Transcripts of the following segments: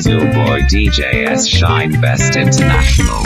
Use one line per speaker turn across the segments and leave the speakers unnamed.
is your boy DJ S Shine Best International.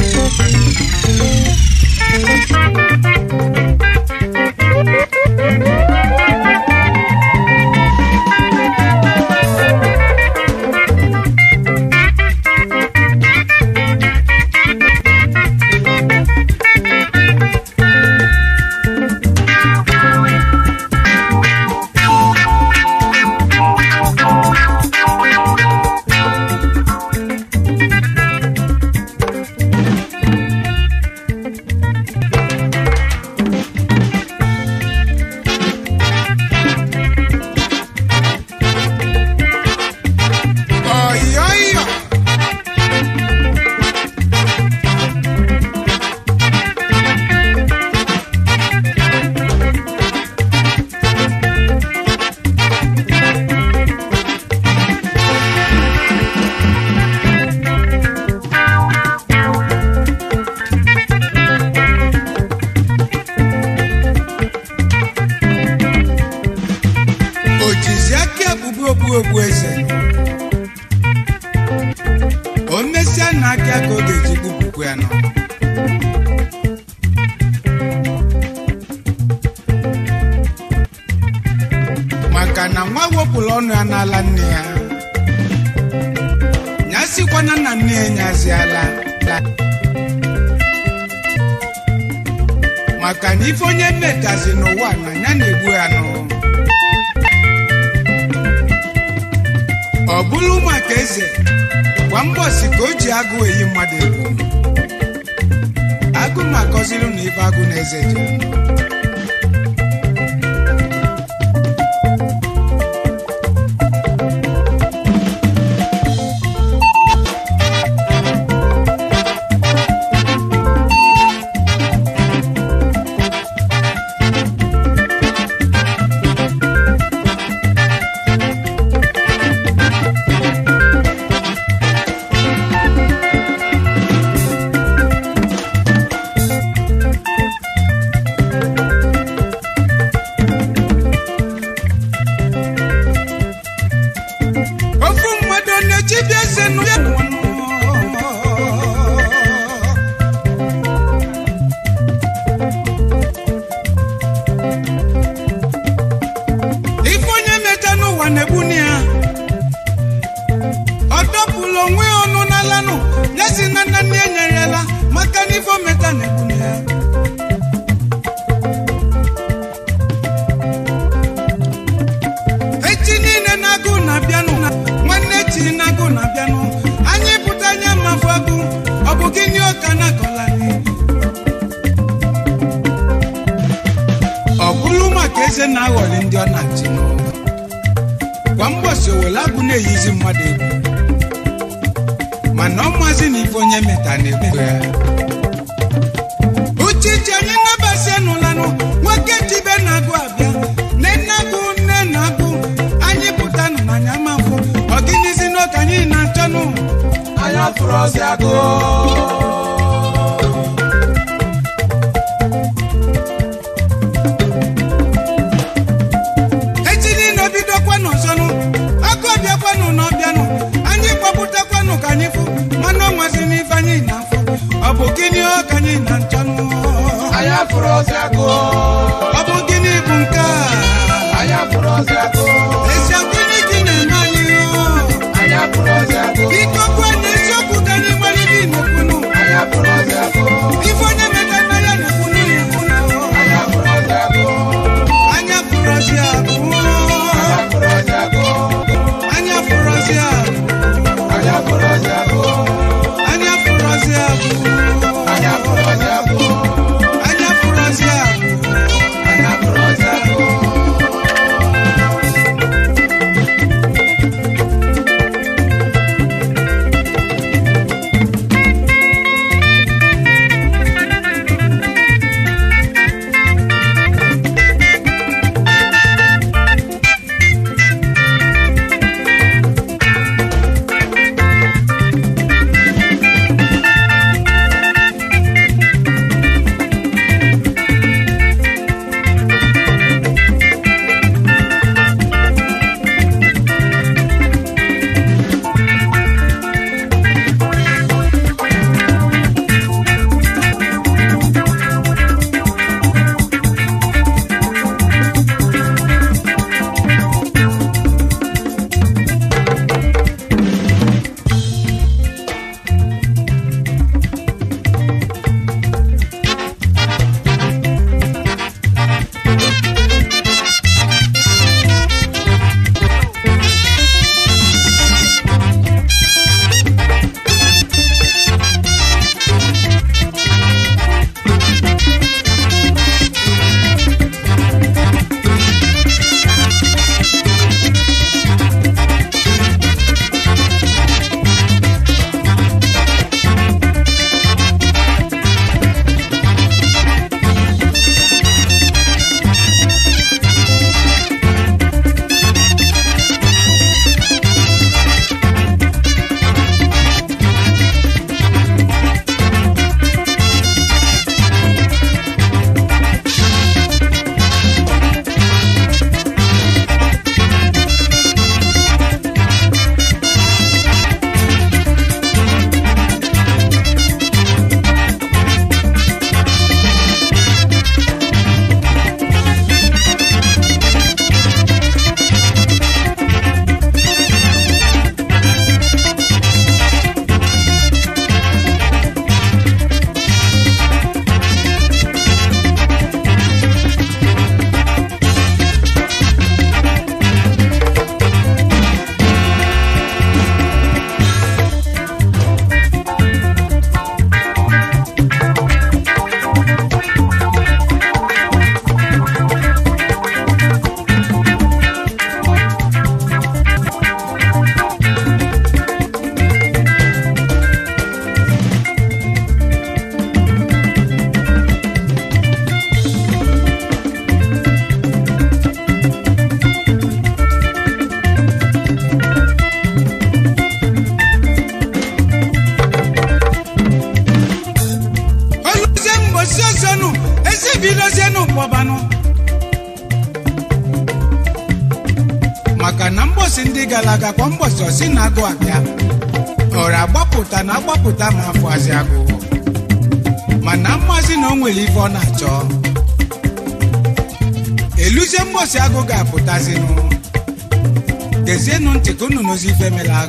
que me la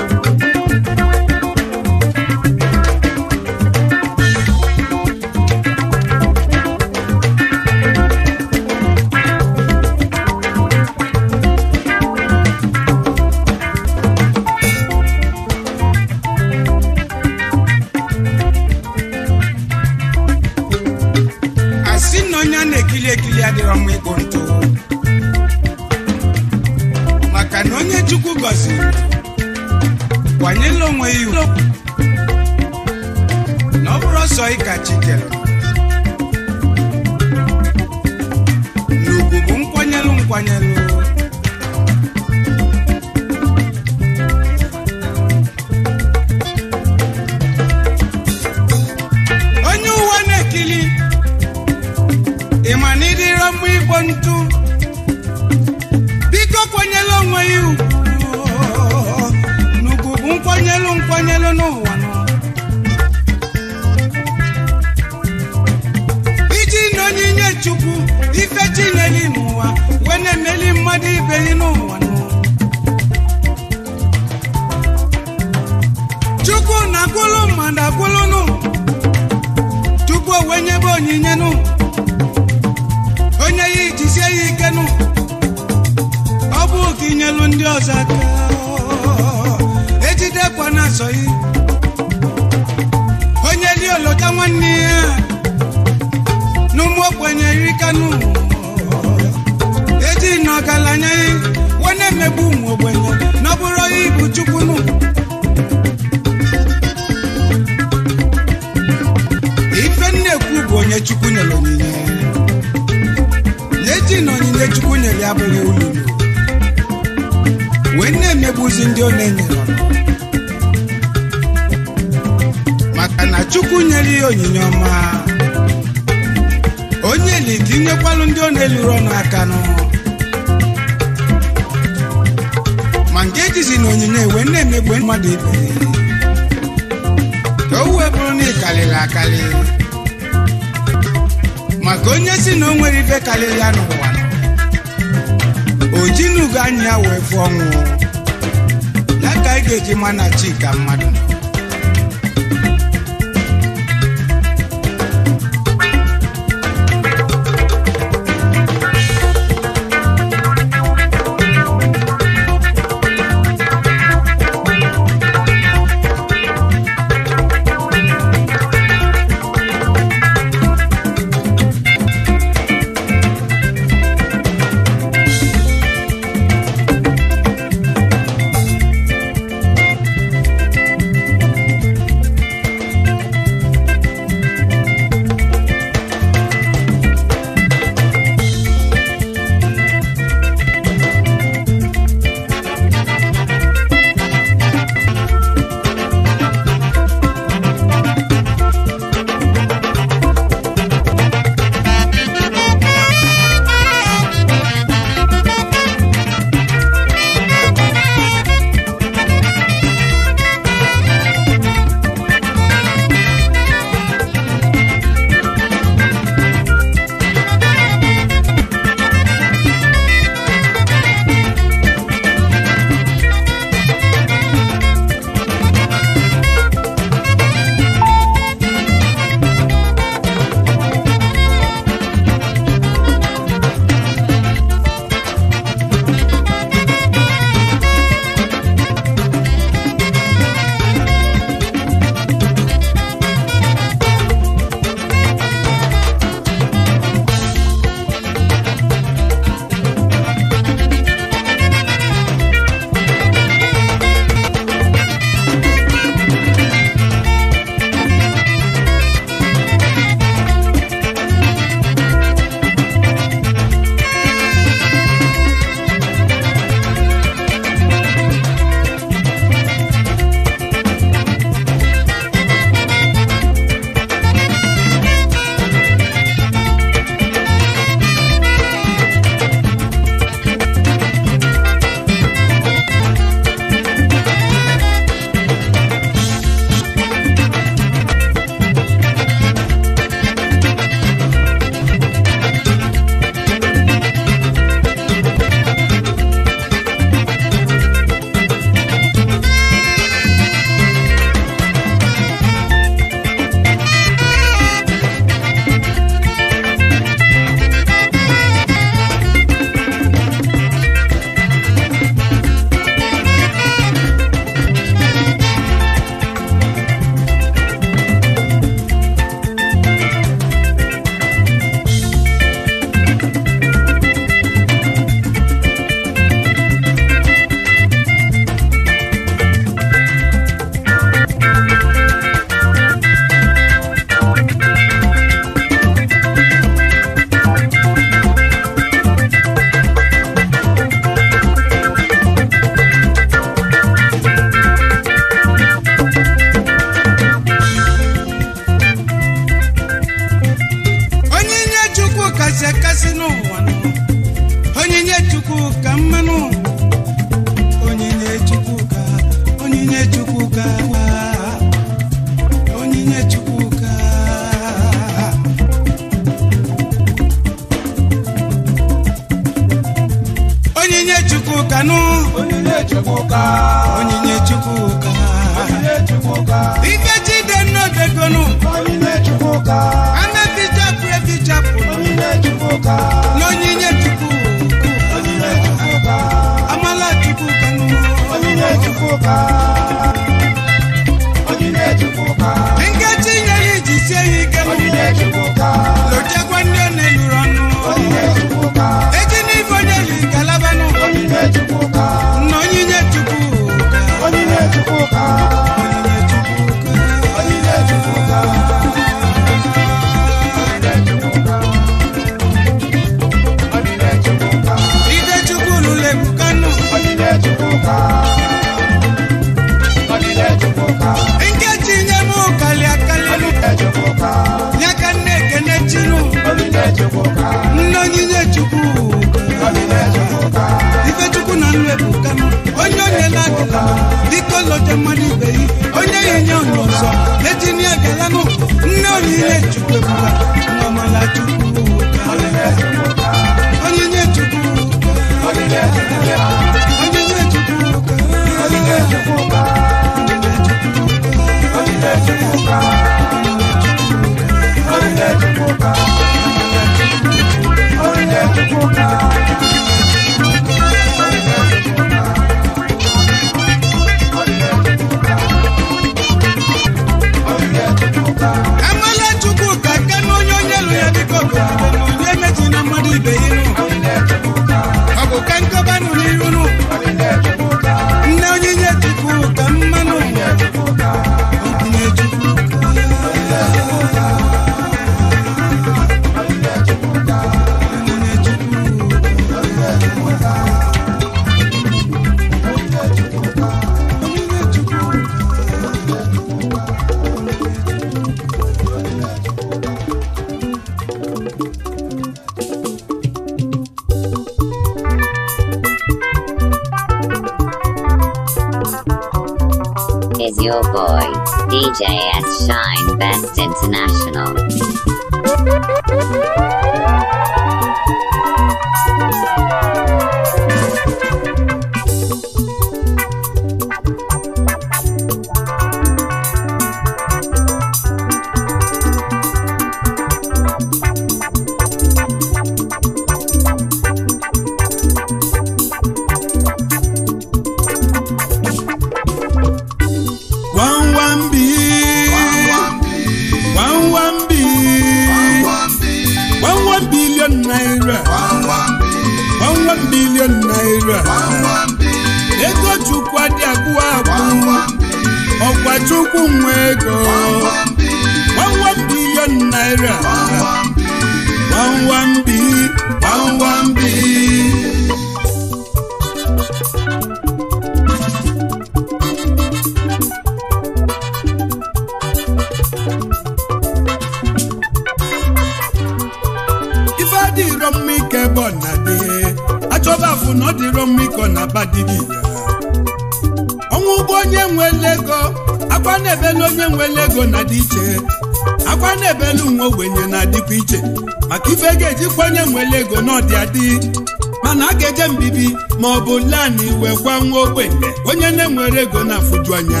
mana a ga-eje mbibi ma ọ bụ lani wee gwa nwa ogbenye onye na-enwere ego na-afụju anya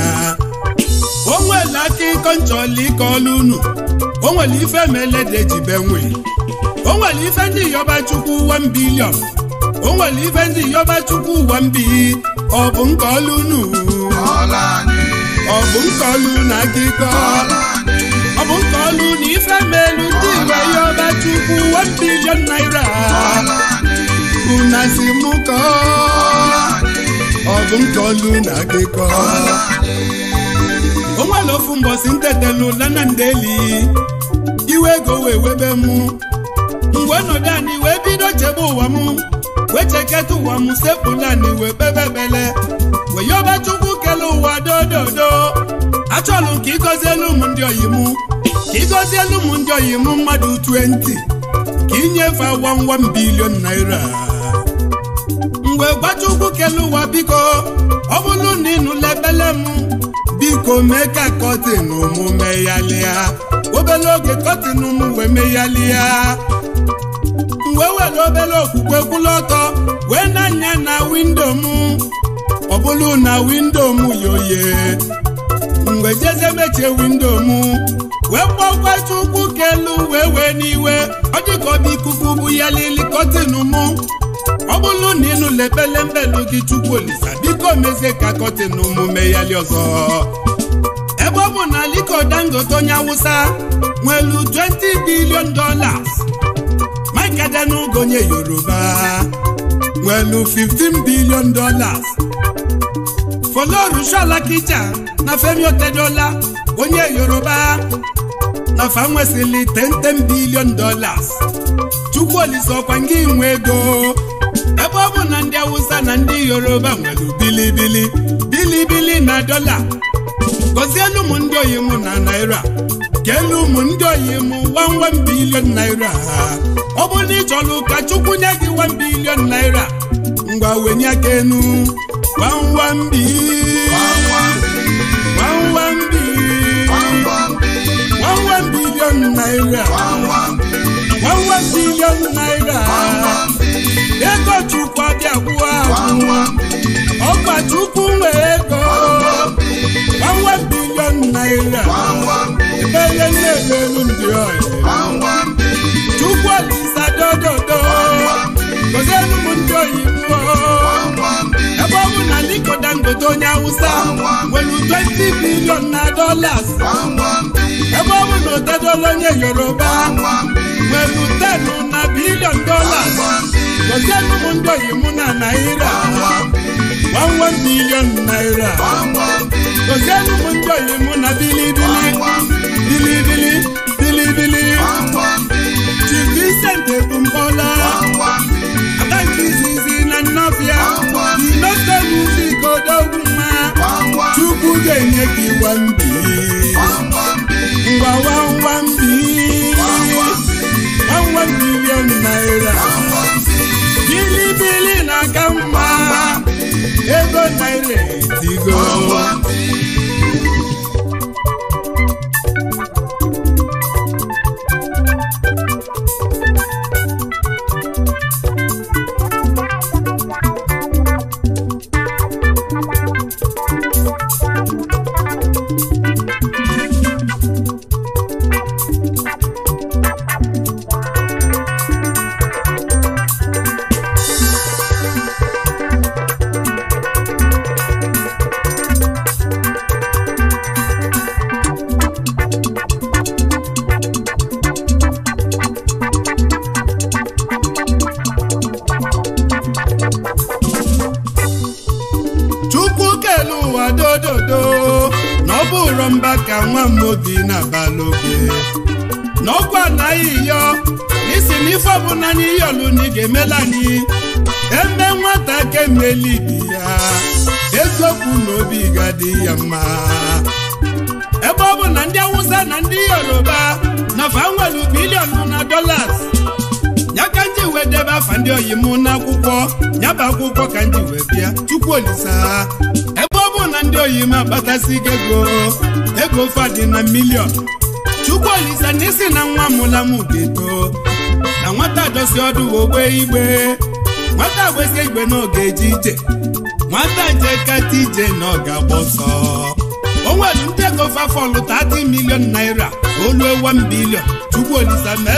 onwele aka ịkọ nchọla ike ọlụ unu onwere ife melede jibe nwe onwere ife ndị yọba chukwu uwe mbilion onwere ife ndị yọba chukwu uwe mbi ọ bụ nke ọlụ unu ọ bụ nke ọlụ na aka ịkọ ọ bụ nke ọlụ na ife melu ndị igwe yọba chukwu uwe mbilion naira una si mụ kọọ ọ bụ m kọlụ na gị kọọ onwere ofu mbọsi ntetelu lana ndeli iwe ego wee webe m mgbe ọnọdụ anyị wee bido chebe ụwa m wee cheketa ụwa m sepụla anyị wee kpebebele wee yọba chukwu kele ụwa dododo achọlụ ka elu m ndị oyi m ka elu m ndị oyi m mmadụ 20 ka inyefe awa nwa m bilion naira mgbe gbachukwu kele ụwa biko ọ bụrụ na ịnụla ebele m biko mee ka kọtin mụ meyalia obere oge kọtin m wee meghalịa mgbe were obere okwukwe kwụlụ ọtọ wee na na windo m ọ na windo m yoye mgbe jeze mechie windo m wee kpọkwachukwu kelu wee wee n'iwe ọ dịka ọ ikuku bụ ya lili kọtin mụ ọ bụrụ na ịnụ lebelembe gị chukwu olisa biko mezie ka kọtịn omume ya li ọzọ ebe ọ bụ na Aliko Dangote onye awụsa nwelu 20 billion dollars Mike Adenuga onye yoruba nwelu billion dollars Folorunsho Alakija na Femi Otedola onye yoruba na fa ten ten billion dollars Chukwuolisa ọkwa nke inwe ebe ọ bụ na ndị Awụsa na ndị Yoruba nwere bilibili bilibili na dọla gọzielu ụmụ ndị oyi mụ na naira elu ụmụ ndị oyi mụ wanwan bilion naira ọbụla ọ bụ na ị chọrọ ụka Chukwu nye gị wan bilion naira ngwa wenye aka enu wanwan naira Egochukwu abịakwuo ọgbachukwu nwee ego gbanwe bilion naira emenye na-emelu ndị ọyị Chukwu Olisa dododo gozielu m ndị oyibo ọwụ na Aliko Dangote onye Awụsa nwere 20 bilion na dollars ebe ọ bụ na Otedola onye Yoruba nwere 10 na bilion dollars gozienụ m ndị na naira 11 bilion naira gozienụ m ndị oyibo na bilibili bilibili bilibili Chief Vincent Ebumpọla aka nke izizi na Nnabịa Sinọsta muzik odogwu mma Chukwu ga-enye gị wambi ngwa wambi wambi milion naira bilibili na-aka mma ego naira etigo dị ya mma ebe ọ bụ na ndị awụsa na ndị yoruba na fa nwere bilion na dolas ya ka wee debe afa ndị oyi mụ n'akwụkwọ nyaba akwụkwọ ka nji wee bịa chukwu olisa ebe ọ bụ na ndị oyi m agbatasi ego ego dị na milion chukwu olisa na isi na nwa mụla m ga-eto na nwata dosi ọdụ ogbe igbe nwata gbesi igbe n'oge eje ije nwata njeketa ije na nọ ga-agba ọsọ ndị ego fafọlụ 30 milion naira oluo 1 bilion chukwu olisa ma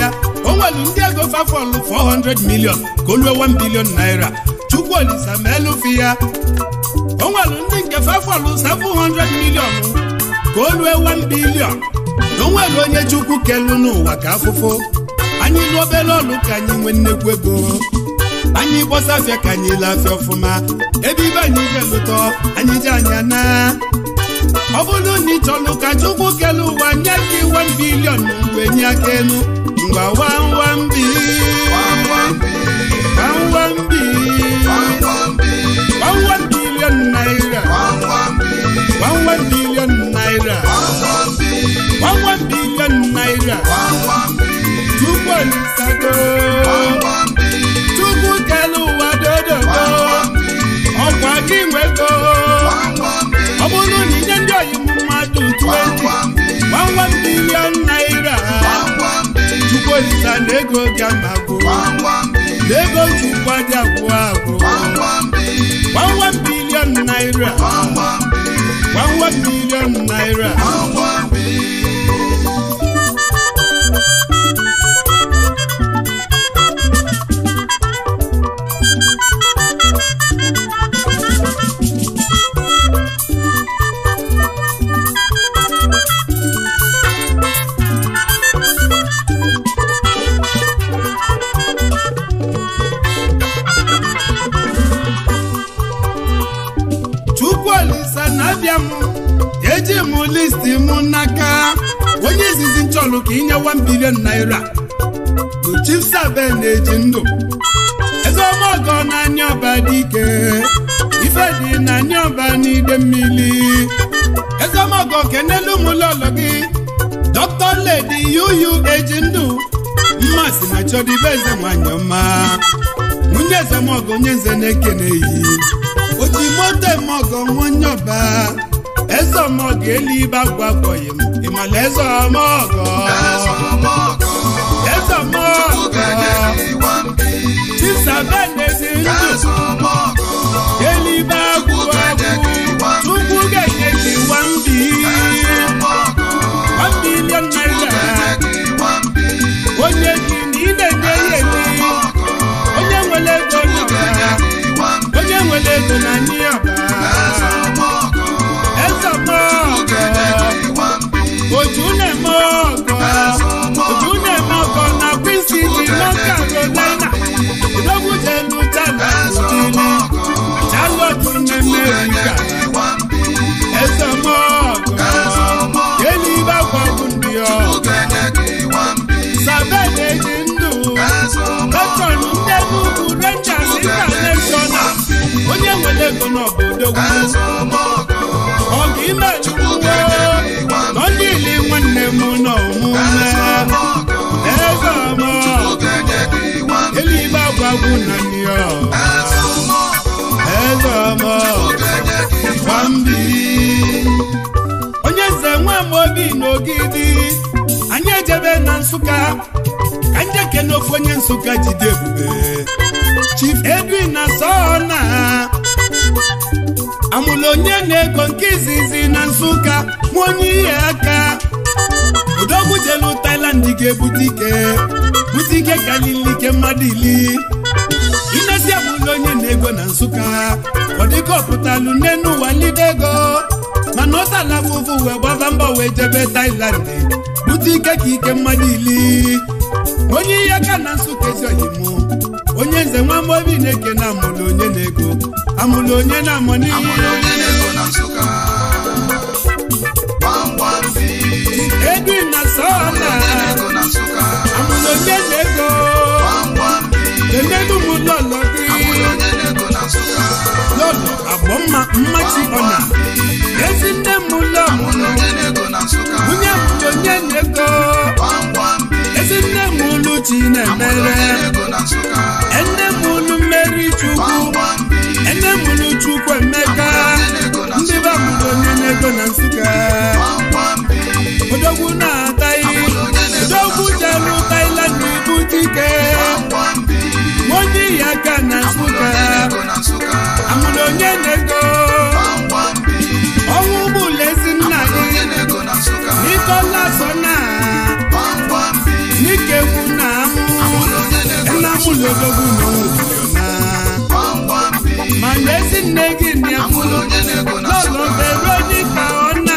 ya o nwere ndị ego fafọlụ 400 milion ka olu 1 bilion naira chukwu olisa ma ya o ndị nke fafọlụ 700 milion ka oluo 1 bilion na o onye chukwu kelu n'ụwa ka afụfụ anyị n'obere ọlụ ka anyị nwee nnekwu ego anyị gbọsafịa ka anyị lafịa ọfụma ebe ibe anyị ga-elụtọ anyị ji anya na ọ bụrụ na ị chọlụ ka chukwu kele ụwa nye gị 1 bilion wee nye aka elu ngwa wawambi wawambi wawan bilion naira naira naira tupu One one dodogo ọkọ akínwé go ọbụrụ na inye ndị oyibo mmadụ 20 11 billion naira chukwuolisa na ego gị amago na ego chukwu dị agwụ agwụ 11 billion naira One one billion naira fọdụrụ ka inyewa bilion naira bụ chief na-eji ndụ ezeọma ọgọ na anya ọba dị ike ife dị na anya ọba n'ide mmiri ezeọma ọgọ kenelu ụmụlọlọ gị dọkịta ledi yuyu eji ndụ si na chọdịbe eze nwanyị ọma nwunye ezemọgọ onye nze na-ekene yi oji moto emeọgọ nwa onye ọba eze ọmọgọ elu ibe agwa akpọghị m ìmọ̀lẹ́ sọ ọmọ ọ̀gọ́. lẹ́sọ̀ ọmọ ọ̀gọ́. tíṣà bẹ́ẹ̀ lè ṣe ń lò. yẹ́lí bá kú ọkú. túkú gẹ̀gẹ̀ kí wọ́n bí. one billion naira. ó yẹ kí ní ilé ní ẹyẹ ní. ó yẹ wọlé tó nàbà. ó yẹ wọlé tó nà ní àbá. ojúlẹ̀ mọ́ ọ̀gọ́ ojúlẹ̀ mọ́ ọ̀gọ́ na bísí ní lọ́kà ló lẹ́nà lọ́gùdẹ̀nu tàbí òdìní àjálọ̀tún ní mẹ́ríkà ẹ̀sẹ̀ mọ́ ọ̀gọ́ yéli bá pọ̀kùn ní ọ̀ sàbẹ̀lẹ̀ ní ndù lọ́kàn ní ndẹ́gùkù rẹ́ńjà sí kàlẹ́ṣọ́nà onye wẹ̀lẹ́gùn náà bòdò wù. ime ọdịli nwanne m n'ọmụme eze ọma eluigbe agwagwu na ya eze ọma nwambili onye nze nwa Amobi n'Ogidi anyị ejebe na Nsụka ka njeke n'ofe onye Nsụka jide ebube Chief Edwin na sọ na amụla onye na-ego nke izizi na Nsụka nwa onye ihe aka odogwu jelu ga-ebute ike bute ike karịrị ike mmadụ ili inesi amụla onye na-ego na Nsụka ọ ọpụtalụ nne n'ụwa lide ego mana ọ tala fụfụ wee gbaba mba wee jebe taịland bute ike ka ike mmadụ ili onye ihe aka na nsụka ezi oyimụ onye nze nwamba obi na-eke na amụlụ onye na-ego amụlụ onye na-amụ n'ihe Edwin na sọna amụlụ onye na-ego emelu ụmụlọlọdị lọlọ abụọ mma mmachi ọna ezi nne m ụlọ onye mụlụ onye na-ego ezi nne m olu ji na-emere ene m ụlọ mmeri chukwu ene m olu chukwu emeka ndị be mụrụ onye na-ego na nsụka odogwu na-ataghị odogwu jelu na ibu dike obi odogwu nọ n'obodo ma n'ezi nne gị na n'ụlọ veronika ọ na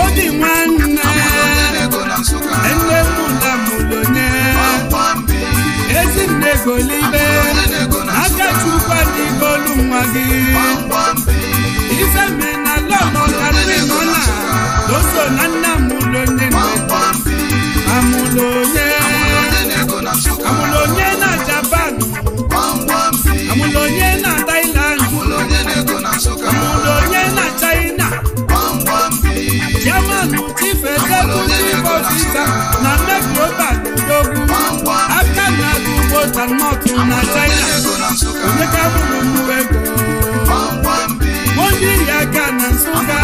obi nwanne nne mụla mụlonye ezi nne golibe aka chukwa n'ibolu nwa gị ifeme na lọlọkarimọla doso na nna mụlonye amụlonye amulonye na Japan amulonye na Thailand amulonye na China German ti fẹsẹ̀ tún sí bọ́sísà na mẹ́kúrọ́bà dógún after na gbogbo tanmọ́tò na China oníkà bùrù mú ẹ̀kọ́ wọ́n yí ìyá Ghana nsúkà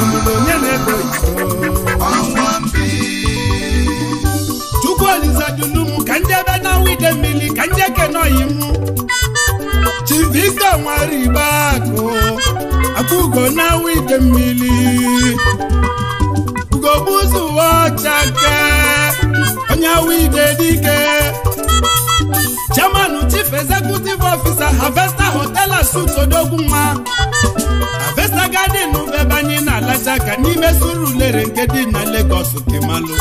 amulonye na ẹ̀kọ́ olizadulum ka ndị ebe na wide mmiri ka ndị ekene yi chivista nwere igbe akụ akụkọ na wide mmiri ugogbu ụzọ uwe ọcha ke onye wide dike chairman chief executive officer Harvester Hotel Suits nwa agadi n'ụba ebe anyị na-alacha ka n'ime ulere nke dị na Lagos kemalụ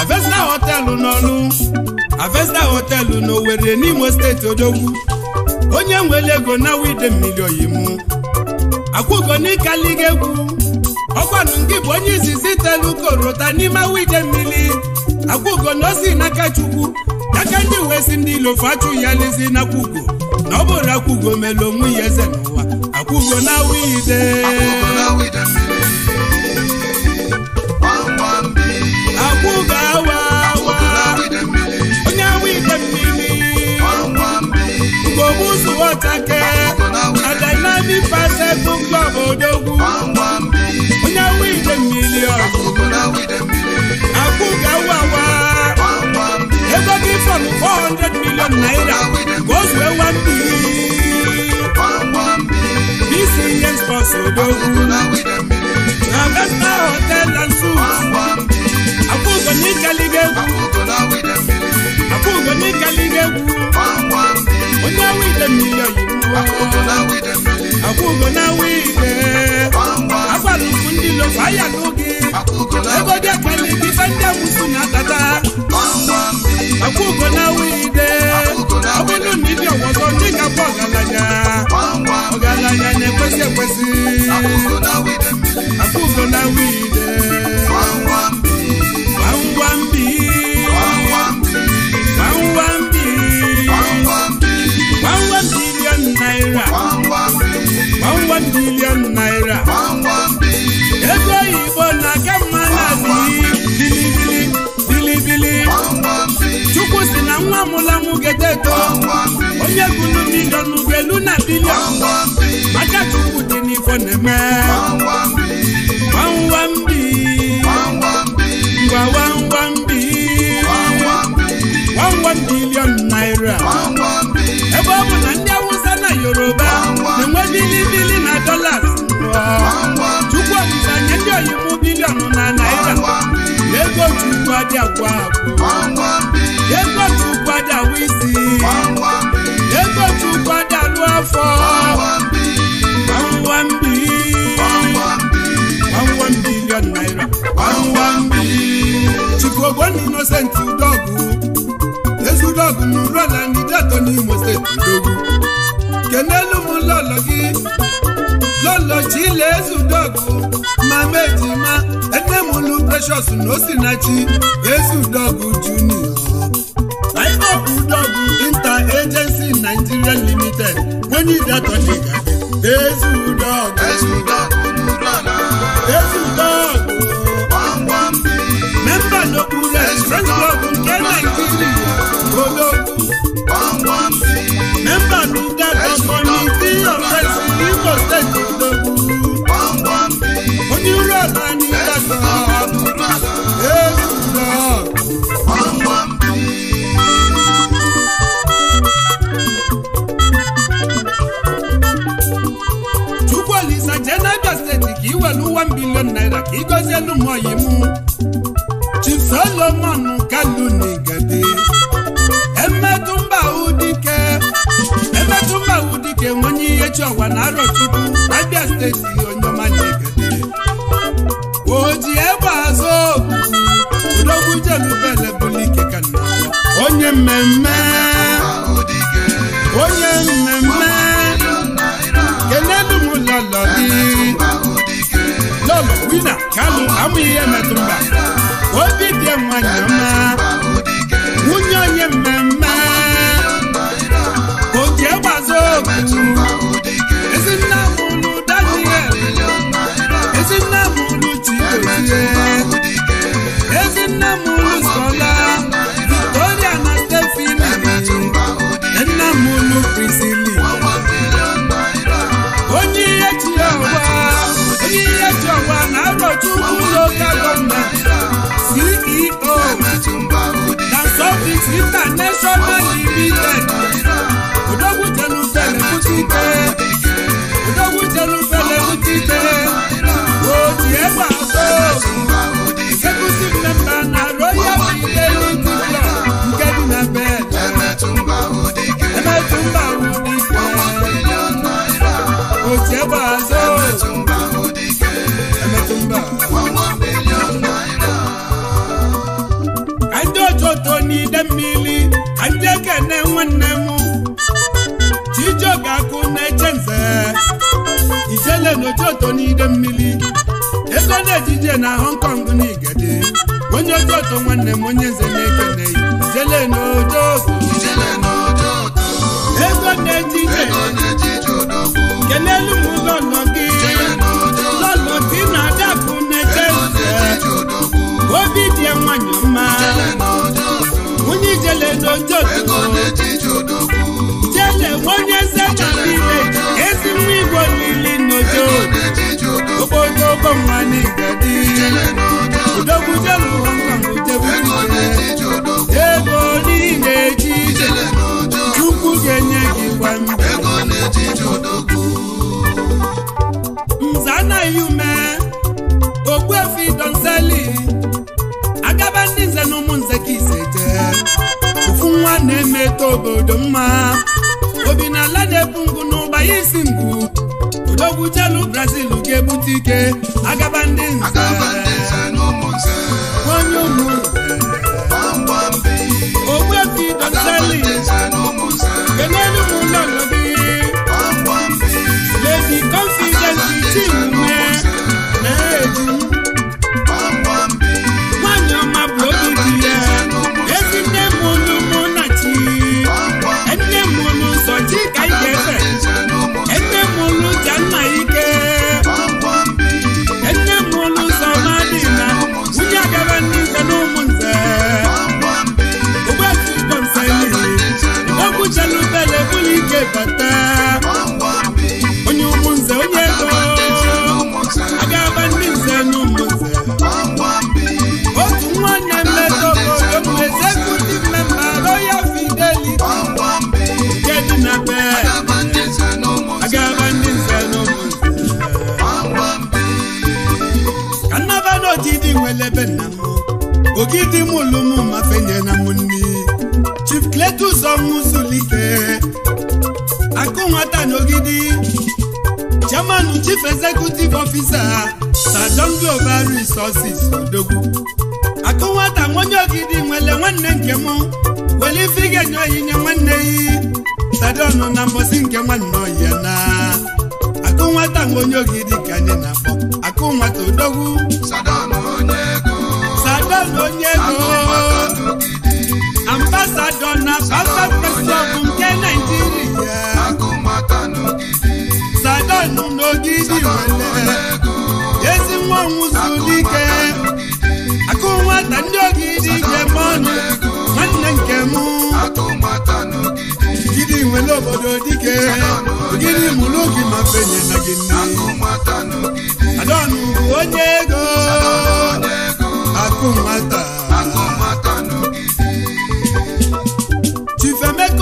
Avesta họtelụ n'ọlụ Avesta na n'Owerri n'Imo steeti odogwu onye nwere ego na wide mmiri oyimu akwụgo n'ikaliga egwu ọkwanụ nke bụ onye izizi telu korota n'ime awide mmiri akwụgo na osi n'aka chukwu n'aka ndị wesi ndị ilofu achụ ya lezi na ọ bụrụ akwụgo mere onwe ya eze n'ụwa akụgo na wide akụgo awa awa onye awa igbe mmiri ngogbu zuwọtake adanani pase kụkpa odogwu onye awa igbe mmiri akụgo awa awa ego gị fọm 400 million naira ka o zuwe One billion us odo. Na besta hotel and food. Akwụkwọ n'ikali ga-egwu. Akwụkwọ n'ikali ga-egwu. Onye awide mmiri oyibo. Akwụkwọ na awide. Agwara ukwu ndị lo faya n'oge. ebodia kwali difenda musu na tata akugo na wide ọbụnụ na ibi ọgwọzọ ndị ga-abụ ọgaranya ọgaranya na-ekwesị ekwesị akugo na wide gbamgbambi gbamgbambi gbamgbam bilion naira gbamgbam bilion naira ego chukwu si na nwa mụlanwụ gedeto onye gụlụ milion ugelu na bilion maka chukwu dị n'ifo na-eme nwambi ngwa nwambi nwanwa bilion naira ebe ọ bụ na ndị awụsa na yoruba na-enwe bilibili na dolas chukwu ọdịda nye ndị oyibo bilion na naira ego chukwu adị agwa agwa ego chukwu isi ego chukwu afọ gbamgbambi gbamgbam naira innocent udogwu ezudogwu n'ụlọ na n'imo steeti udogwu kenelu m ụlọ gị lọ́lọ́jì lẹ́sù dọ́gù máa méjì má ẹgbẹ́múlú precious ló sì náà jí lẹ́sù dọ́gù junior. láìpọ̀pù dọ́gù inter agency nigeria limited wọ́n ní ìdàtọ̀ ní ìgbàgbẹ́ lẹ́sù dọ́gù. lẹ́sù dọ́gù dúró náà. lẹ́sù dọ́gù. wọ́n wọ́n bí. mẹ́mbà ló kú rẹ̀ fresh dọ́gù kẹ́ nàìjíríà ológun. wọ́n wọ́n bí. When you ugbu onye uru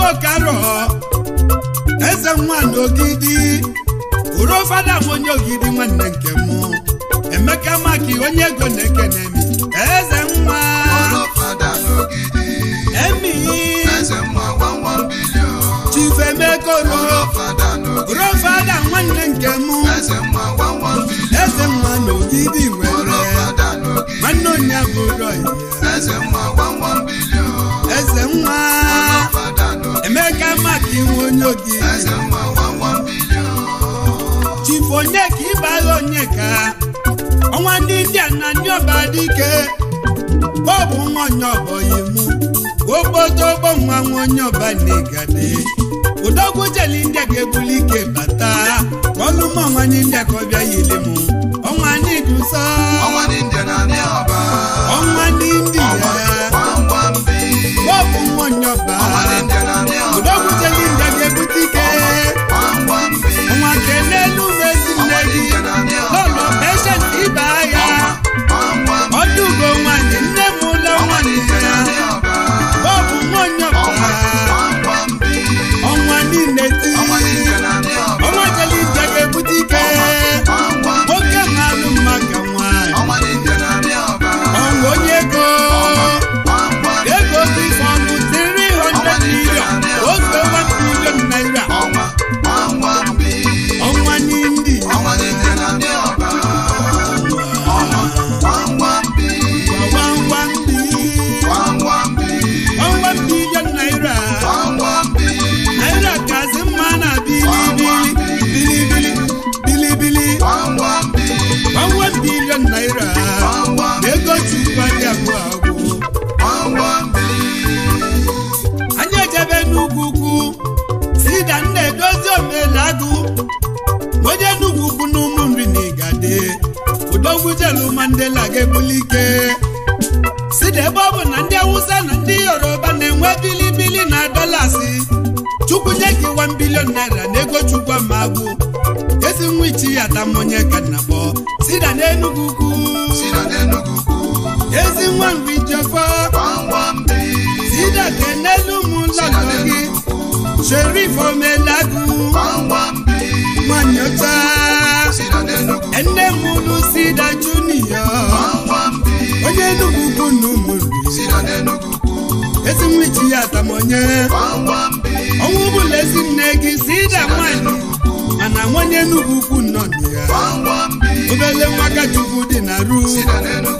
okaro eze nwanyị ogidi bụrụ fada m onye ogidi nwanne nke m emeka maki onye ego na-ekene m eze nwa emi chifemekoro bụrụ fada nwanne nke m eze nwa na ogidi nwere nwanne onye abụrụ eze nwa maka iwe onye oge chifu onye ka ịbala onye ka ọnwa ndị India na ndị ọba dike bọbụ nwa onye ọbọghị mụ. ogbodo ogbo nwa nwa onye ọba na-egade udogwu jeli ndị ga-ebuli ike bata ọlụmọ nwanyị ndị a ka ọ bịa yili m ọnwa ndị dusa ọnwa ndị ya bọbụ nwa onye ọba nwee bilibili na dọlasị chukwu nye gị wan bilion naira na ego chukwu ama agwụ ezi nwa ichi ya ata mmụnye ka si na Enugu ukwu ezi nwa mgbe ijefa sida ka n'elu ụmụụlọ gị sherif omelagụ nwanyị ọcha nne sida onye Enugu ukwu na ụmụ ezi nwa iji ya atamonye ọnwụ bụla ezinne gị si ịda nwanyị mana nwanye n'ugwu ukwu nọ na ya obele nwaka chukwu dị na ru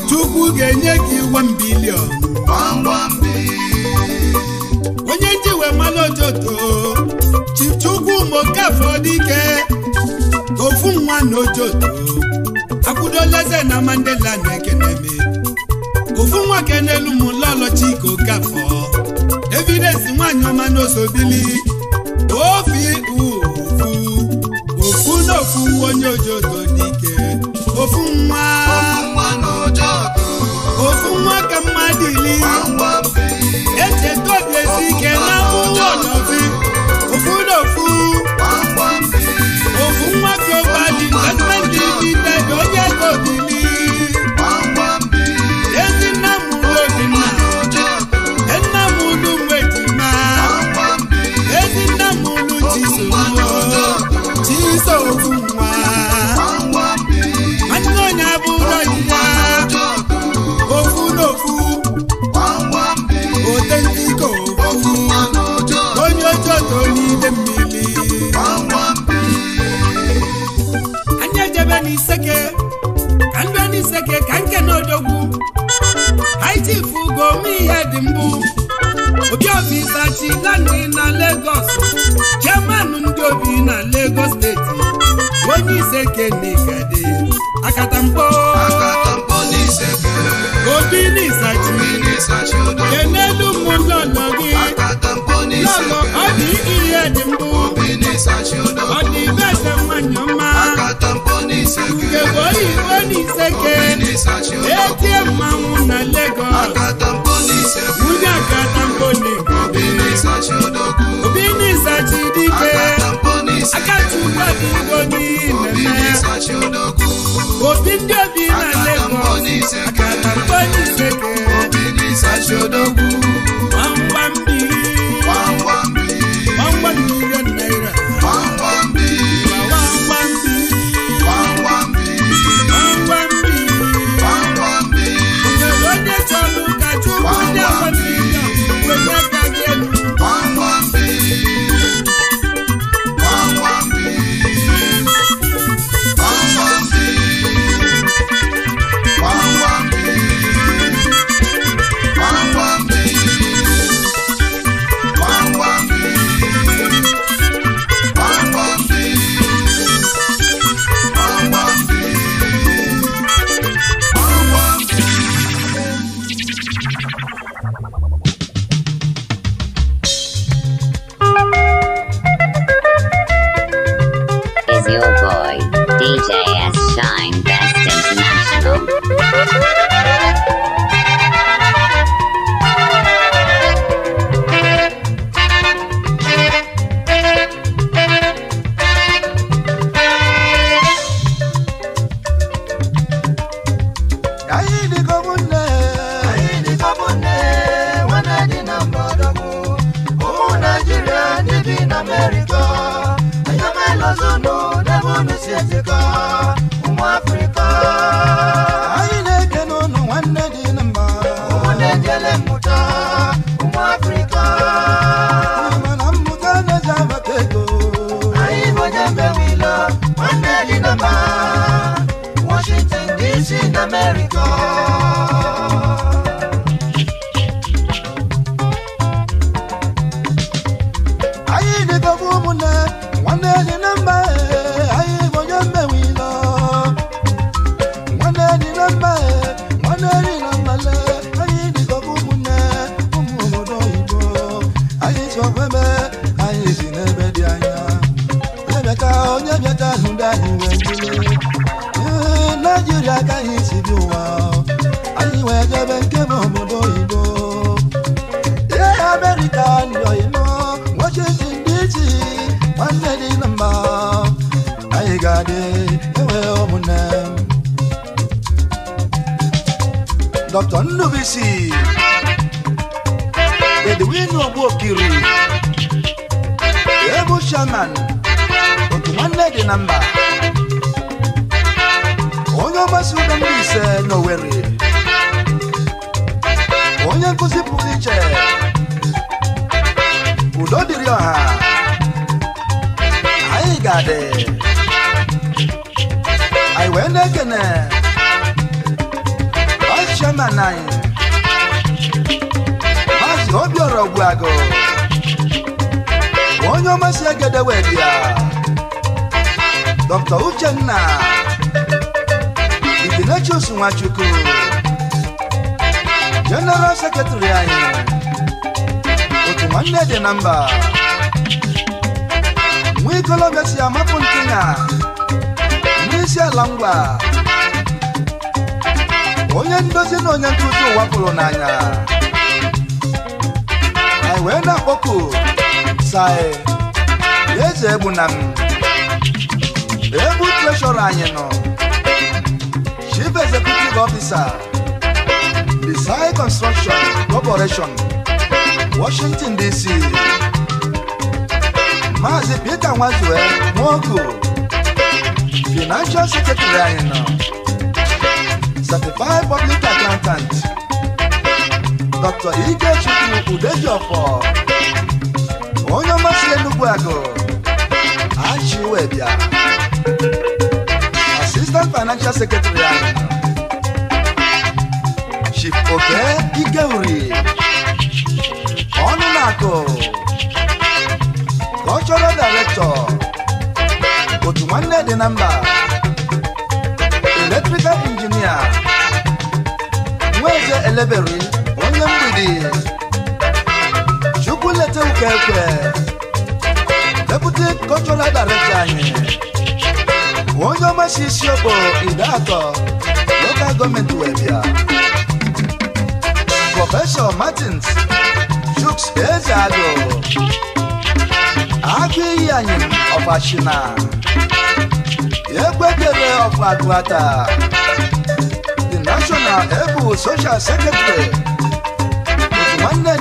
chukwu ga-enye gị iwe mbilion onye njiwe mmanụ ojoto chukwu mokafọ dike ofu nwa na ojoto akwụdola eze na mandela na ekeneme ofu nwoke n'elu m lọlọchika okafọ evidesi nwaanyị ọma n'osobili ofi ofu ofu n'ofu onye ojodo dike ofu nwa ofu nwa ka mmadụ ili echeta obi esi ike na ụlọfi ofu n'ofu ofu nwa ka ụbadị gọọmenti dị onye ego obili odogwu ITF gomi ihe dị mbụ Obi Isachi Lani na Lagos chairman ndị obi na Lagos steeti onye ise kenigadi akatamkpo Obi Isachi kenelu mmụọ nọ gị lọlọ ọ dị ihe dị mbụ ọ dị ibe eze mmanya mma seke boyi woni seke eti ma wuna lego wuna katamponi obini sachi dike akatuka bugoni nene obindi obi na lego akatamponi seke sachi odogu.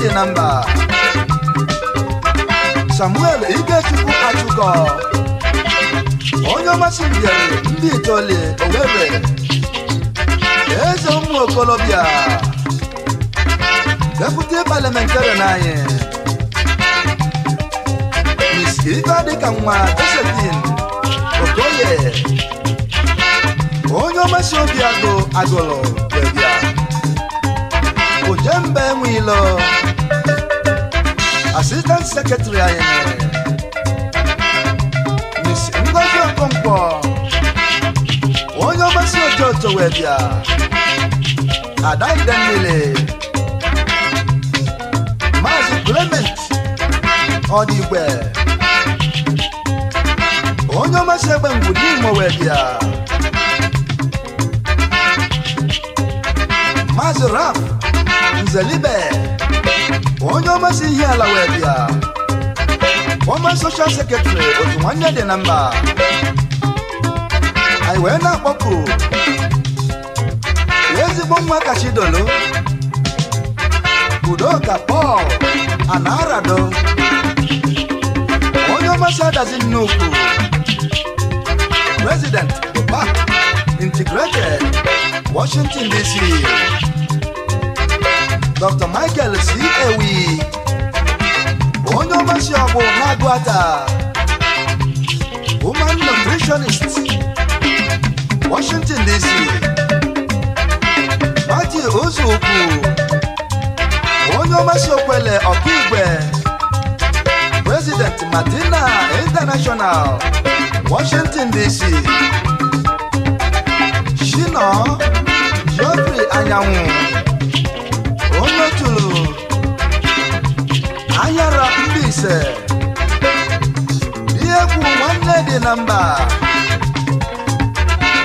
dị na mba Samuel Igechukwu Achụkọ onye ọmasị mbịarị ndị Itoli Owerri eze ụmụ okolobịa deputi parliamentary na anyị Miss Ibe dịka nwa Josephine Okoye onye ọmasị obi agụ agụlụ bịa ojembe enwe ilo assistant secretary Miss Ngozi Okonkwo onye ọmasị ojoto wee bịa adaide niile Maazị Clement Odigwe onye ọmasị egbe ngwu n'Imo wee bịa Maazị Raf Nzelibe onye si ihe ala wee bịa ọma soshal sekretrị otu nwanne dị na mba anyị wee na-akpọku ezigbo nwa kachidolu udoka pọl anarado onye ọmasị adazi nnukwu president the washington dc dr michael c ewi onye ọgbasi ọgwụ na-agụ ata human nutritionist washington dc mati ozokwu onye ọgbasi okwele ọkaigwe president madina international washington dc shino geoffrey anyanwụ anyara ise ihe egwu nwanne dị na mba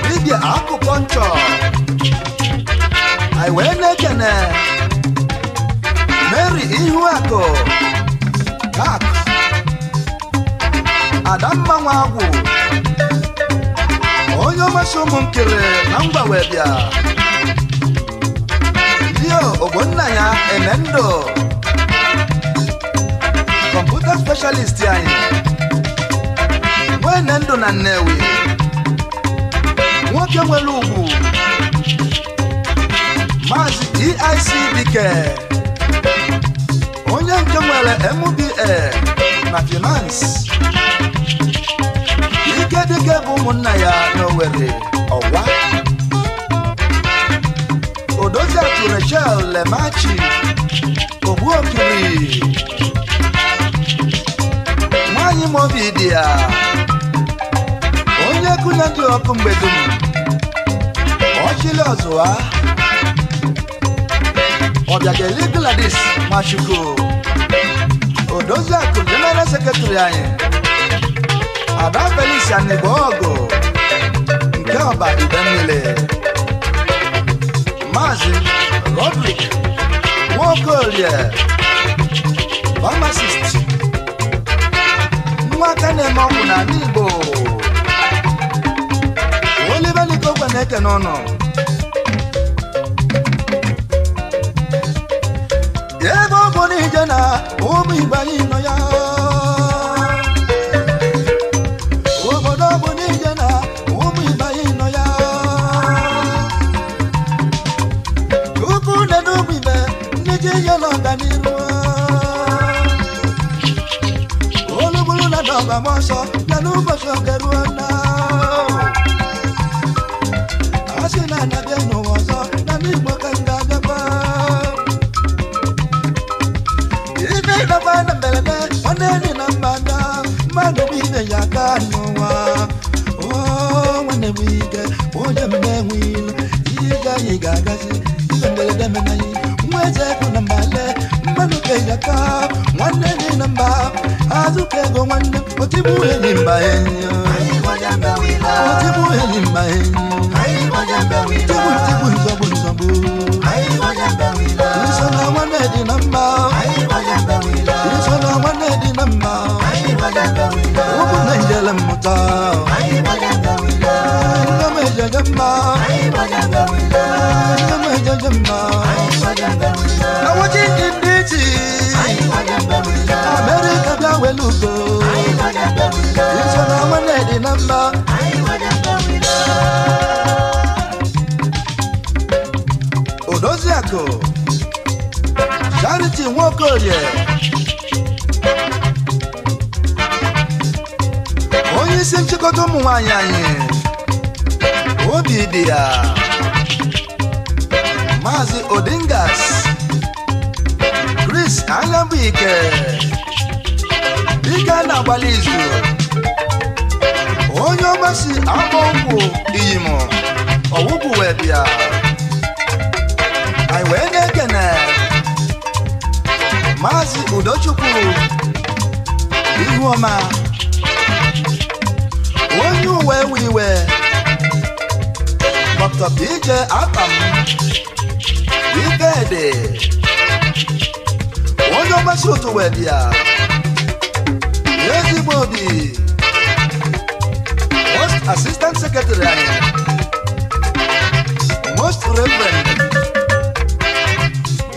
dibịa akụkọ nchọ anyị wee na-ekene Mary akụ kak Adamma agwụ. onye ọmasị ụmụnkiri na mgbanwe bịa ogbonna ya Emendo na specialist anyị nwene ndụ na Nnewi nwoke nwere ugwu Maazị DIC Dike onye nke nwere MBA na finance Ike Dike bụ ụmụnna ya n'Owerri ọwa Odoziatu Rachel Lemachi Ogbuokiri nwanyị ma obi dị ya onye egwu na-adị ọkụ mgbe dum ọchịlị ọzụwa ọbịa ga-eli Gladys Machukwu Odoziakụ jeneral sekretrị anyị Ada Felix Anigbo ọgụ nke ọba ibe mmiri Maazị Rodrick Nwaokorie Pharmacist nwaka na-eme ọgwụ na ala igbo olibeliko ogwe na-eke n'ọnụ ebe ọ bụ n'ije ramoso laluboso geruona asina nabia nuwoso namimokangagaba ininabana mbelebe oneninambanda manubine yakanuwa wanewige ojemnewil yiga yigagasi ibembeledemenayi mwezekunamalema nwanne gị na mba azụka ego nwanne otigbu eli mba otigbu eli mba tigbu tigbu nzọbụ nzọbụ iso na nwanne dị na mba iso na nwanne dị na mba ụkwụ na njele mmụta nne m ejeje mma nne m ejeje mma na nwochi ndị orie onye isi nchịkọta ụmụ nwanyị anyị obi dị ya maazị odingas chris Ike, ike na-agbali izu onye ọgbasi akpọ nkwụ iyim ọwụbụ wee bịa maazị udochukwu ihuọma onye uwe wiwe dr ije atam ikedi onye ọgbasi otu wedia ezigbo obi most assistant secretary anyị most reverend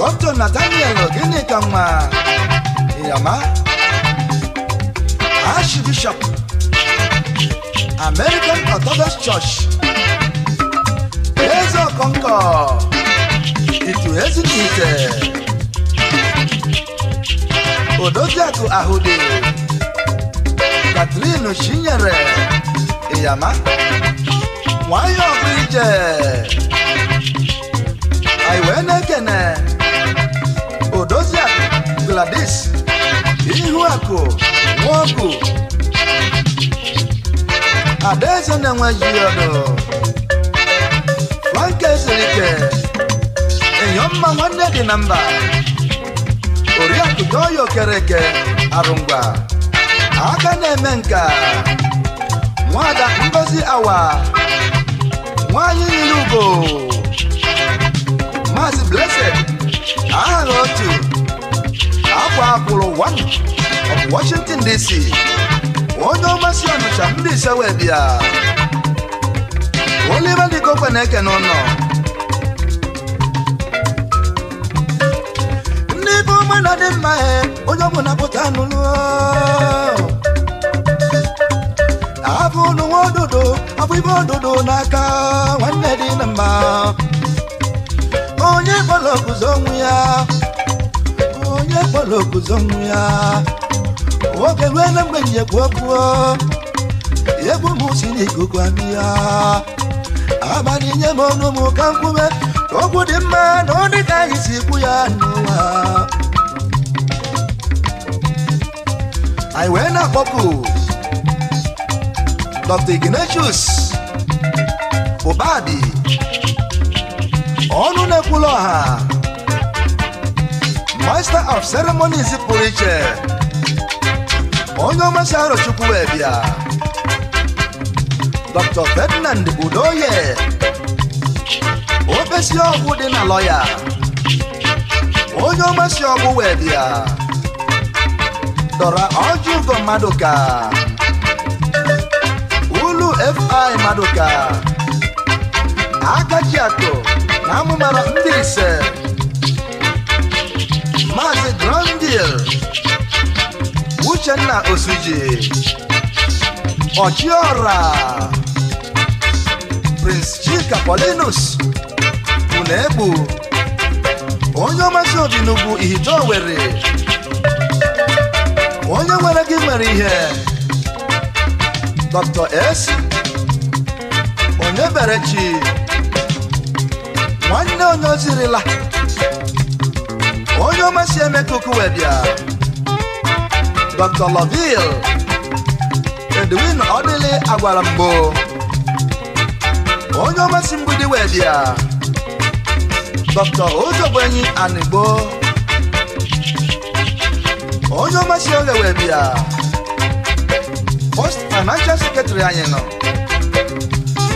Dr. Nathaniel Oginikanwa Iyama Archbishop American Orthodox Church Eze Okonkwo Itu Ezinite Odoziaku Ahude Kathleen Oshinyere Iyama Nwayo Ọgụ Ije Aiwe Nekene Ihu Akụ Nwogu Adaeze na-enwejiọdụ Frank Ezerike Enyomma nwanne dị na mba Oriakụ Doyo Kereke Arụngwa aka na-eme nka Nwada Ngozi Awa Nwanyị Ugo Maazị Blessed aha otu ọkwa akwụrụ ụwa Washington DC onye ọmasị ọnụcha ndị ise wee bịa Oliver Dikokwe na-eke n'ụlọ ndị be ọma na dị mma onye ọ bụla pụta n'ụlọ abụ nwa ododo abụ ibe ododo n'aka nwanne dị na mma onye kpọrọ ọgụzọ ya akpọrọ oguzo nwa ya oge rue na mgbe nyekwu okwu egwu m si n'ikuku abịa abalị nye m ọnụ m ka nkwume okwu dị mma na ọ dị ka anyị si kwu ya n'ụwa anyị wee na-akpọpụ Dr. Ignatius Ụbadi ọnụ na-ekwula ọha master of ceremonies pụrụ iche onye ọmasị arọ Chukwuebia Dr. Ferdinand Udoye opesi ọgwụ dị na lọya onye ọmasị ọgwụ wee bịa dọra ọjụgo Maduka ulu fi Maduka ato na amụmara ndị ise Emil Uchenna Osuji Ochiora Prince Chika Paulinus Unebu onye ọmasị obi n'ugwu ihito were onye nwere gị nwere ihe Dr. S onye bere chi nwanne onye ozirila Noma Sheme Kukuwebia, Dr. Laville, Edwin Odile Agwarambo, Onyoma Simbudi Webia, Dr. Ojobwenyi Anigbo, Onyoma Shioge Webia, Post Financial Secretary Anyeno,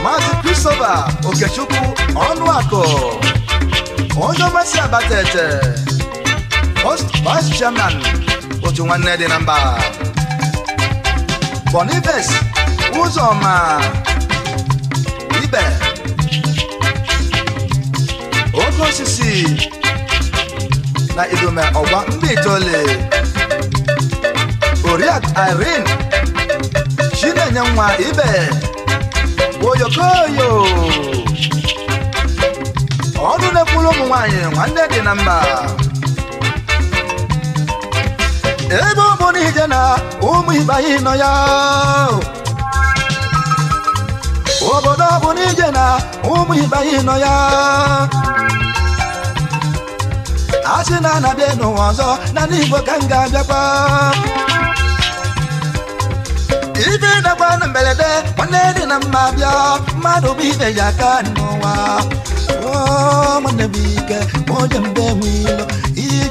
Mazi Christopher Okechukwu Ọnụakụ, Onyoma Si Abatete, Vice Chairman otu nwanne dị na mba Boniface Uzoma uh, Ibe oke osisi na idume ọgba mba itoolu Oriak Irene Chinenye nwa Ibe Oyokoyo ọrụ na-ekwuru ụmụ nwaanyị nwanne dị na mba ebe ụmụrụ n'ije na ụmụ ibe nọ ya obodo bụ n'ije na ụmụ ibe ịnọ nọ ya a sị na anabịa n'ụwa ọzọ na n'Igbo Igbo ka m ga-abịakwa na mberede nwanne dị na mma bịa mmadụ bụ ibe ya aka n'ụwa nwanne m ike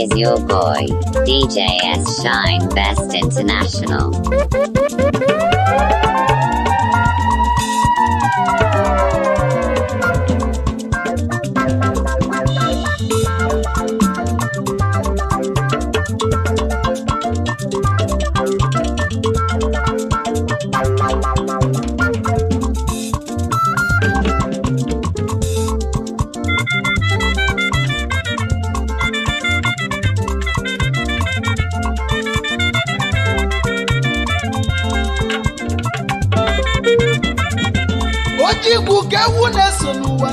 is your boy, DJ S Shine Best International.
ewu na-eso n'ụwa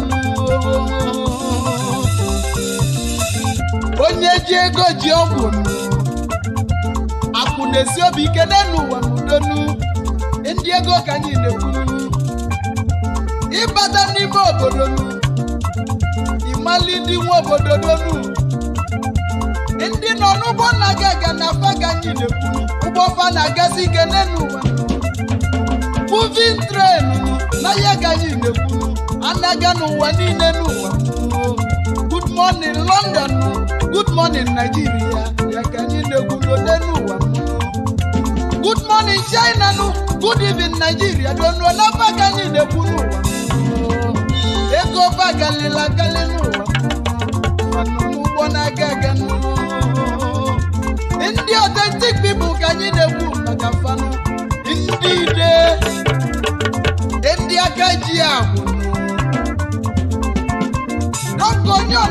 onye ji ego ji ọgwụ akụ na-esi obi ike n'ụwa n'udonu ndị ego ka anyị na-ekwuru ịbata n'ime obodo ịmali ndị nwe obodo donu ndị nọ n'ụgbọ nna gị aga na afa ka anyị na-ekwuru ụgbọ fa na-agazi ike n'ụwa moving train n'ahịa gaghị na-ekwu anaga n'ụwa niile n'ụwa good morning London good morning Nigeria ya ka anyị na-egwudo n'ụwa good morning China nụ good evening Nigeria donuo na baka anyị na-ekwu n'ụwa ego bagalila agali n'ụwa ụgbọ na-aga aga ndị authentic people ka anyị na maka fanụ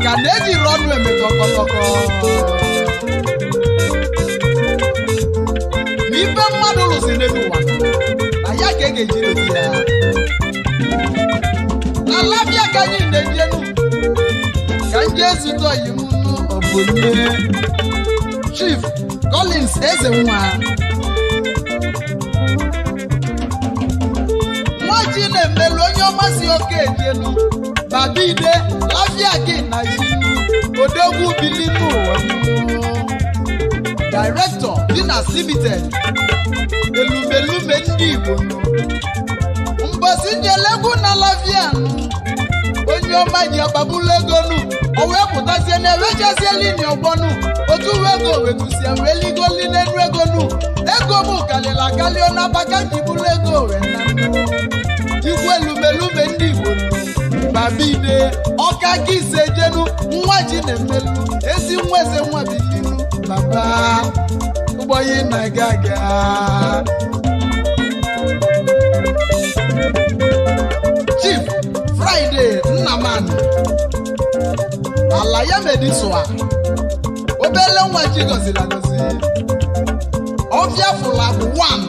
àgàdéjì rọnu ẹ̀mí tọkọtọkọ. n'ife mmadụ lụsiri n'ụwa na ya ka e ga-eji dozi ya ala bịa ka anyị na-ejenu ka ndị ezute oyi m n'obodo Chief Collins eze nwa nwa ji na-emelu onye ọmasị oke ejenu badide lazia gị na iwu odogwu bili n'ụwa directọ dị na limited elumelume ndị igbo mbosi njelegwu na lavian onye ọma ji ọgbagbulu ego nu o wee pụtazie na ewejezie lini ọgbọnụ, otu uwe ego wetusie wee ligoli n'elu ego nu ego m kalịla kalịọ n'abaka jibulu ego wee na igwe elumelume ndị igbo bide ọka ka ise jenu nwa ji na-emelu ezi nwa eze nwa bilinu baba ụgbọyi na gaga chief Fraịde Nnamani ala ya medisua obele nwa ji gọziri agọzi ọbịa 1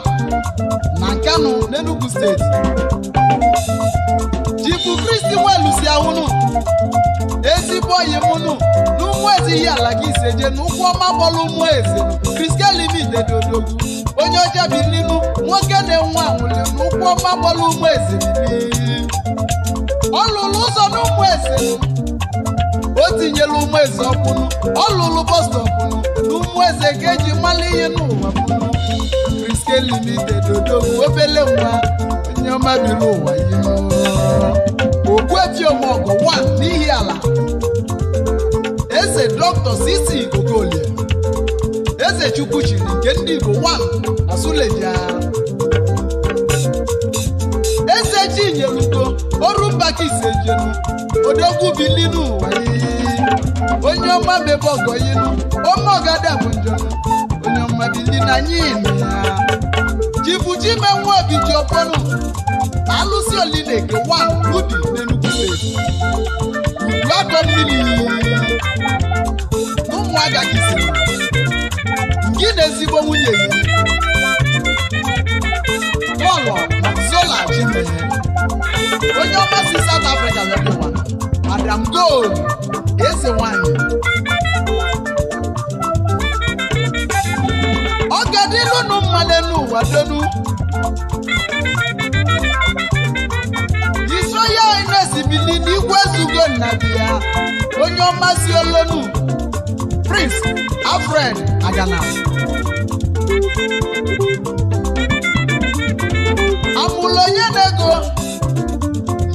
na Nkanu n'Enugu steeti otu kristi welusi ahụnụ ezigbo oyi mụnụ na eze ihe ala gị iseje na ụkwụ ọma bọlụ ụmụ eze kristi elimide dị odogwu onye ọcha bi n'inu nwoke na-enwe anwụli na ụkwụ ọma bọlụ ụmụ eze ọ lụrụ ụzọ na ụmụ eze o tinyela ụmụ eze ọkpụnụ ọ lụrụ bọstọpụnụ eji mmalụ ihe n'ụwa pụnụ kristi na-etinye mmadụ ụwa ihe ogbuejiomọgọ wan n'ihi ala eze dọkịta Sisi Okolie eze Chukwu chiri nke ndị Igbo wan na Suleja eze Chinyelugo ọrụmbakisejenu odogwu bili n'ụwa onye ọma mebe ọgọ inu ọma ọgada bụ njem onye ọma bili na anyị ya Ibuji menwu ebiji ọkpọrọ alụsi olineke wan ludi n'Enugu steeti udu akọ mmiri n'ụmụaka gị siri gị na ezigbo nwunye ya bọlọ zola jime onye si South Africa webiwa Madam Gold eze nwanyị n'elu ụwa delu
iso ya na-ezibili n'igwe
ezugo nna ya onye ọmasị olonu Prince Alfred Agana amụlụ onye na-ego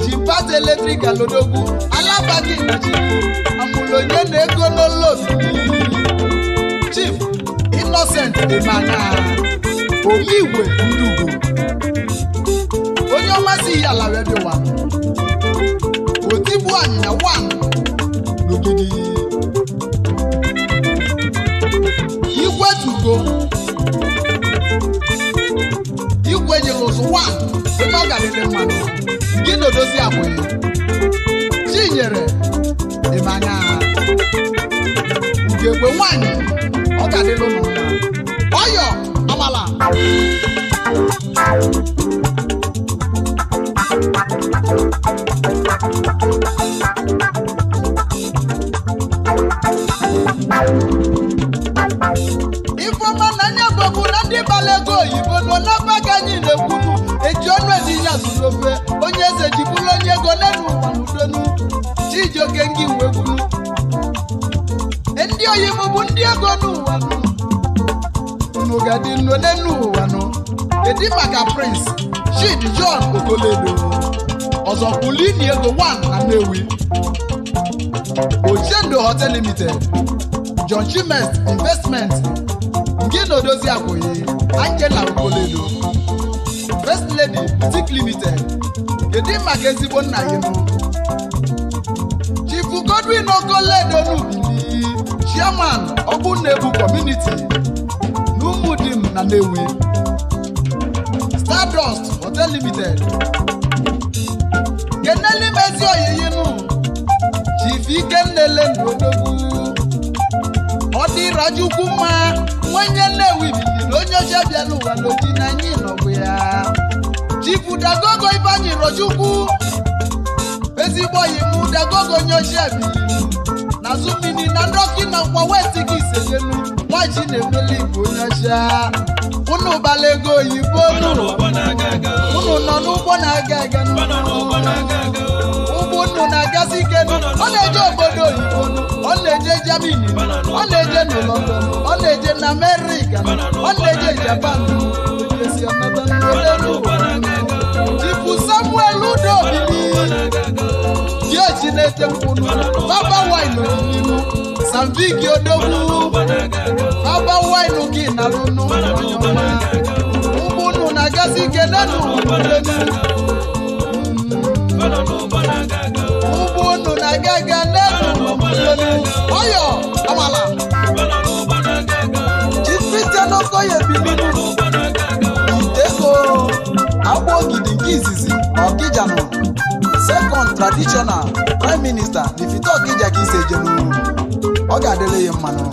ji eletrik alodogwu alabaghị nchi amụlụ onye na Chief Innocent Dimana onye igwe ndugo onye ọmasị ihe ala rediowa otigbu anya wan n'ogidi igwe tugo igwe nyelụzụ wan ebe ọ nke ebe mmanụ gị na odozi abụghị chinyere ịmanya nke egwe nwanyị ọ ga-adịlụ ya. àpàlà. nọ n'elu ụwa nọ kedu maka prince Chidi John Okoledo ọzọkwulini ego 1 anewi Nnewi Ochendo Hotel Limited John Chimest Investment nke na odozi akwụghị Angela Okoledo First Lady Boutique Limited kedu maka ezigbo nna ya nụ? Chief Godwin Okoledo n'Ubili Chairman Ogbunnebu Community Gumudim na Stardust Hotel Limited Keneli Mezi Oyeyinu Chief Ikenlele Ngodogwu Ọ dịrajukwu mma nwenye Nnewi biliri onye oche bịara ụwa n'oji ya Chief Dagogo Ibanyi Rojukwu ezigbo oyi mụ Dagogo onye oche biliri n'azụ mmiri na ndị ọkụ na nkwa wee nwaji na-emeli igbo nyacha ụnụ bala ego oyibo unu unu nọ n'ụgbọ na-aga aga ụgbọ ụnụ na-agazi ike ọ na-eje obodo oyibo ọ na-eje jamini ọ na-eje n'ụlọ london ọ na-eje na amerịka ọ na-eje japan jipu samuel udobi ji echi na-ete mkpụrụ baba wine n'ihu na mvigi odogwu ọba wainu gị nalụnụ ụmụnụ na-agazi kenenu ụmụnụ na-aga aga nenu ọyọ amala jisite n'ọkọ ya ebibidu iteko agba ogidi nke izizi ọkịjanụ second traditional prime minister Lifito Okija ka ise jenu ọ ga-adịrị ya mmanụ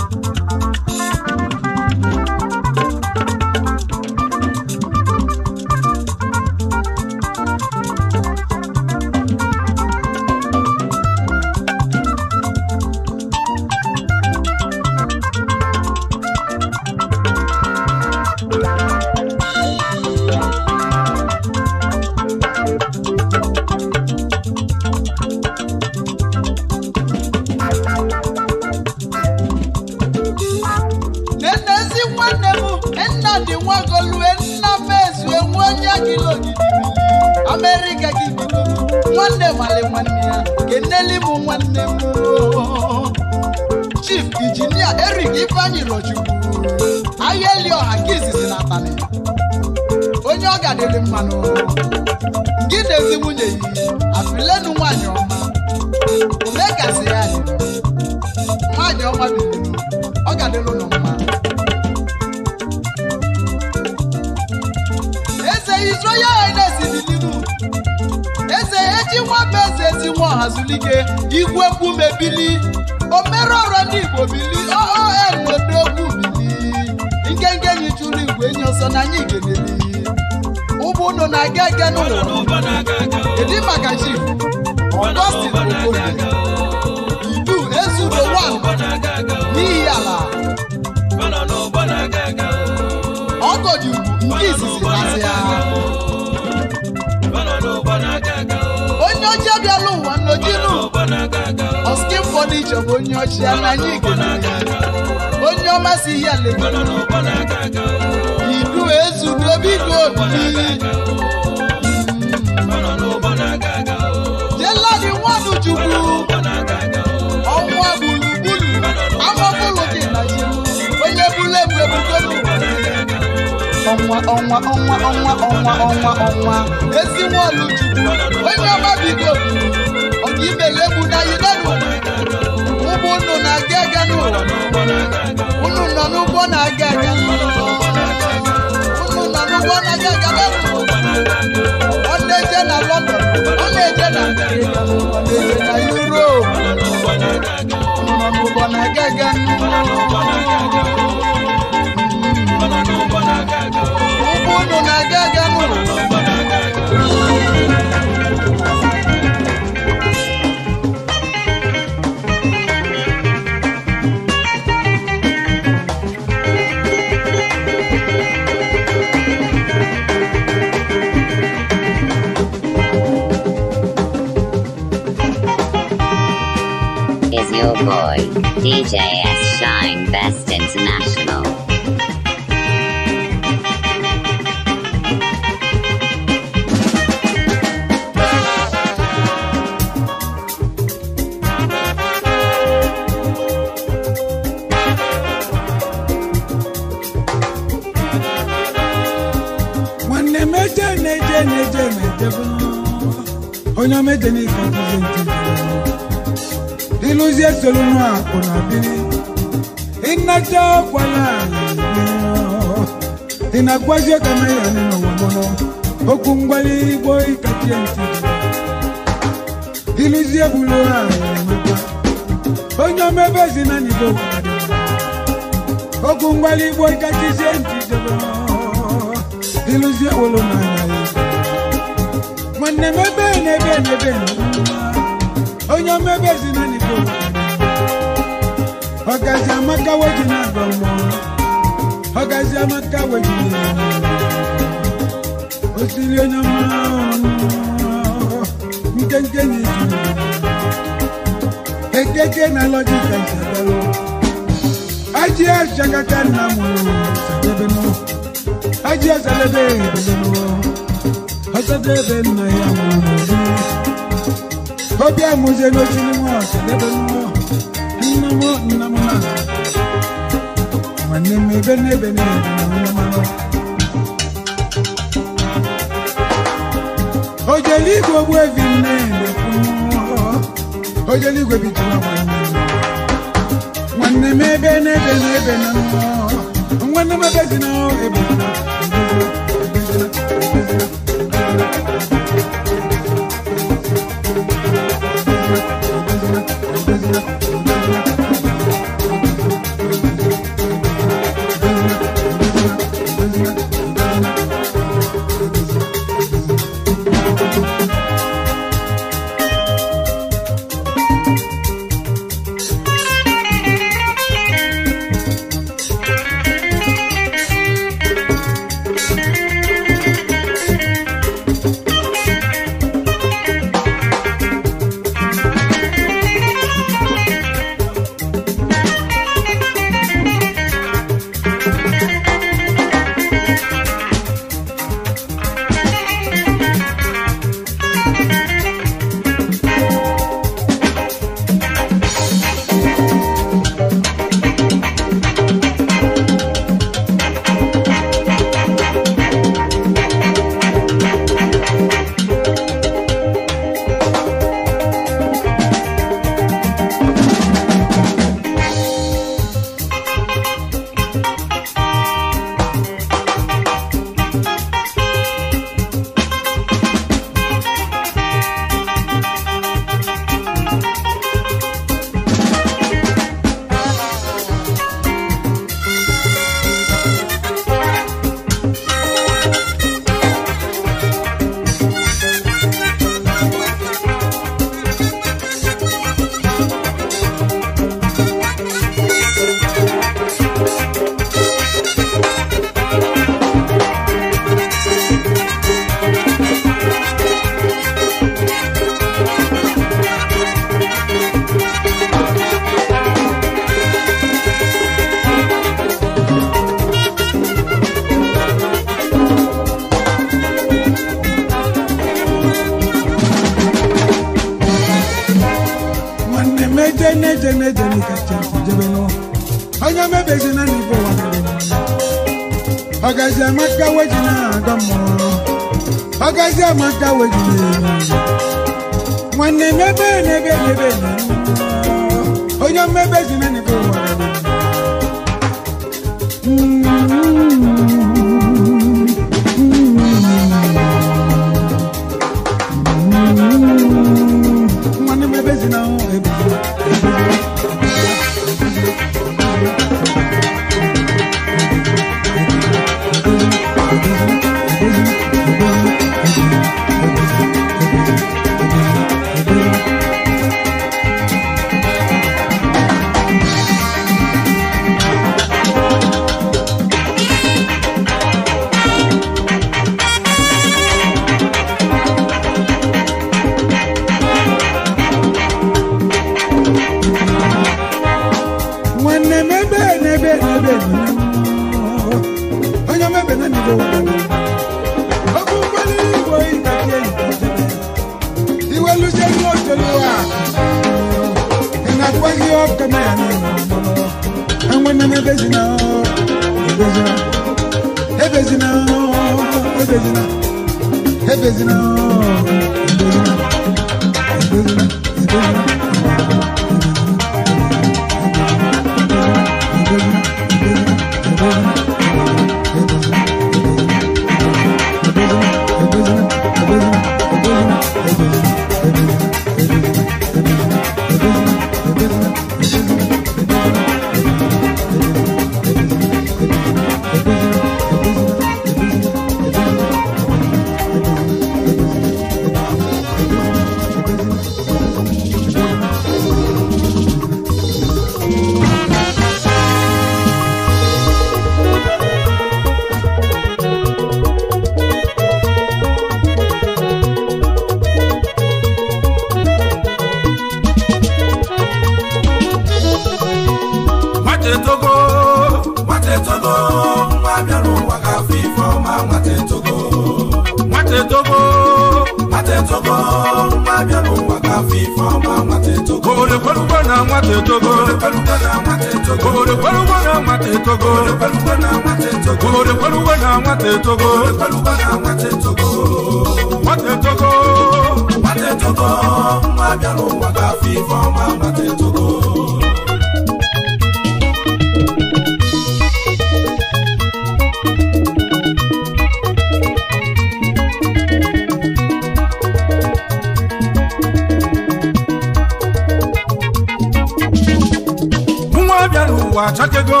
ụwa achakego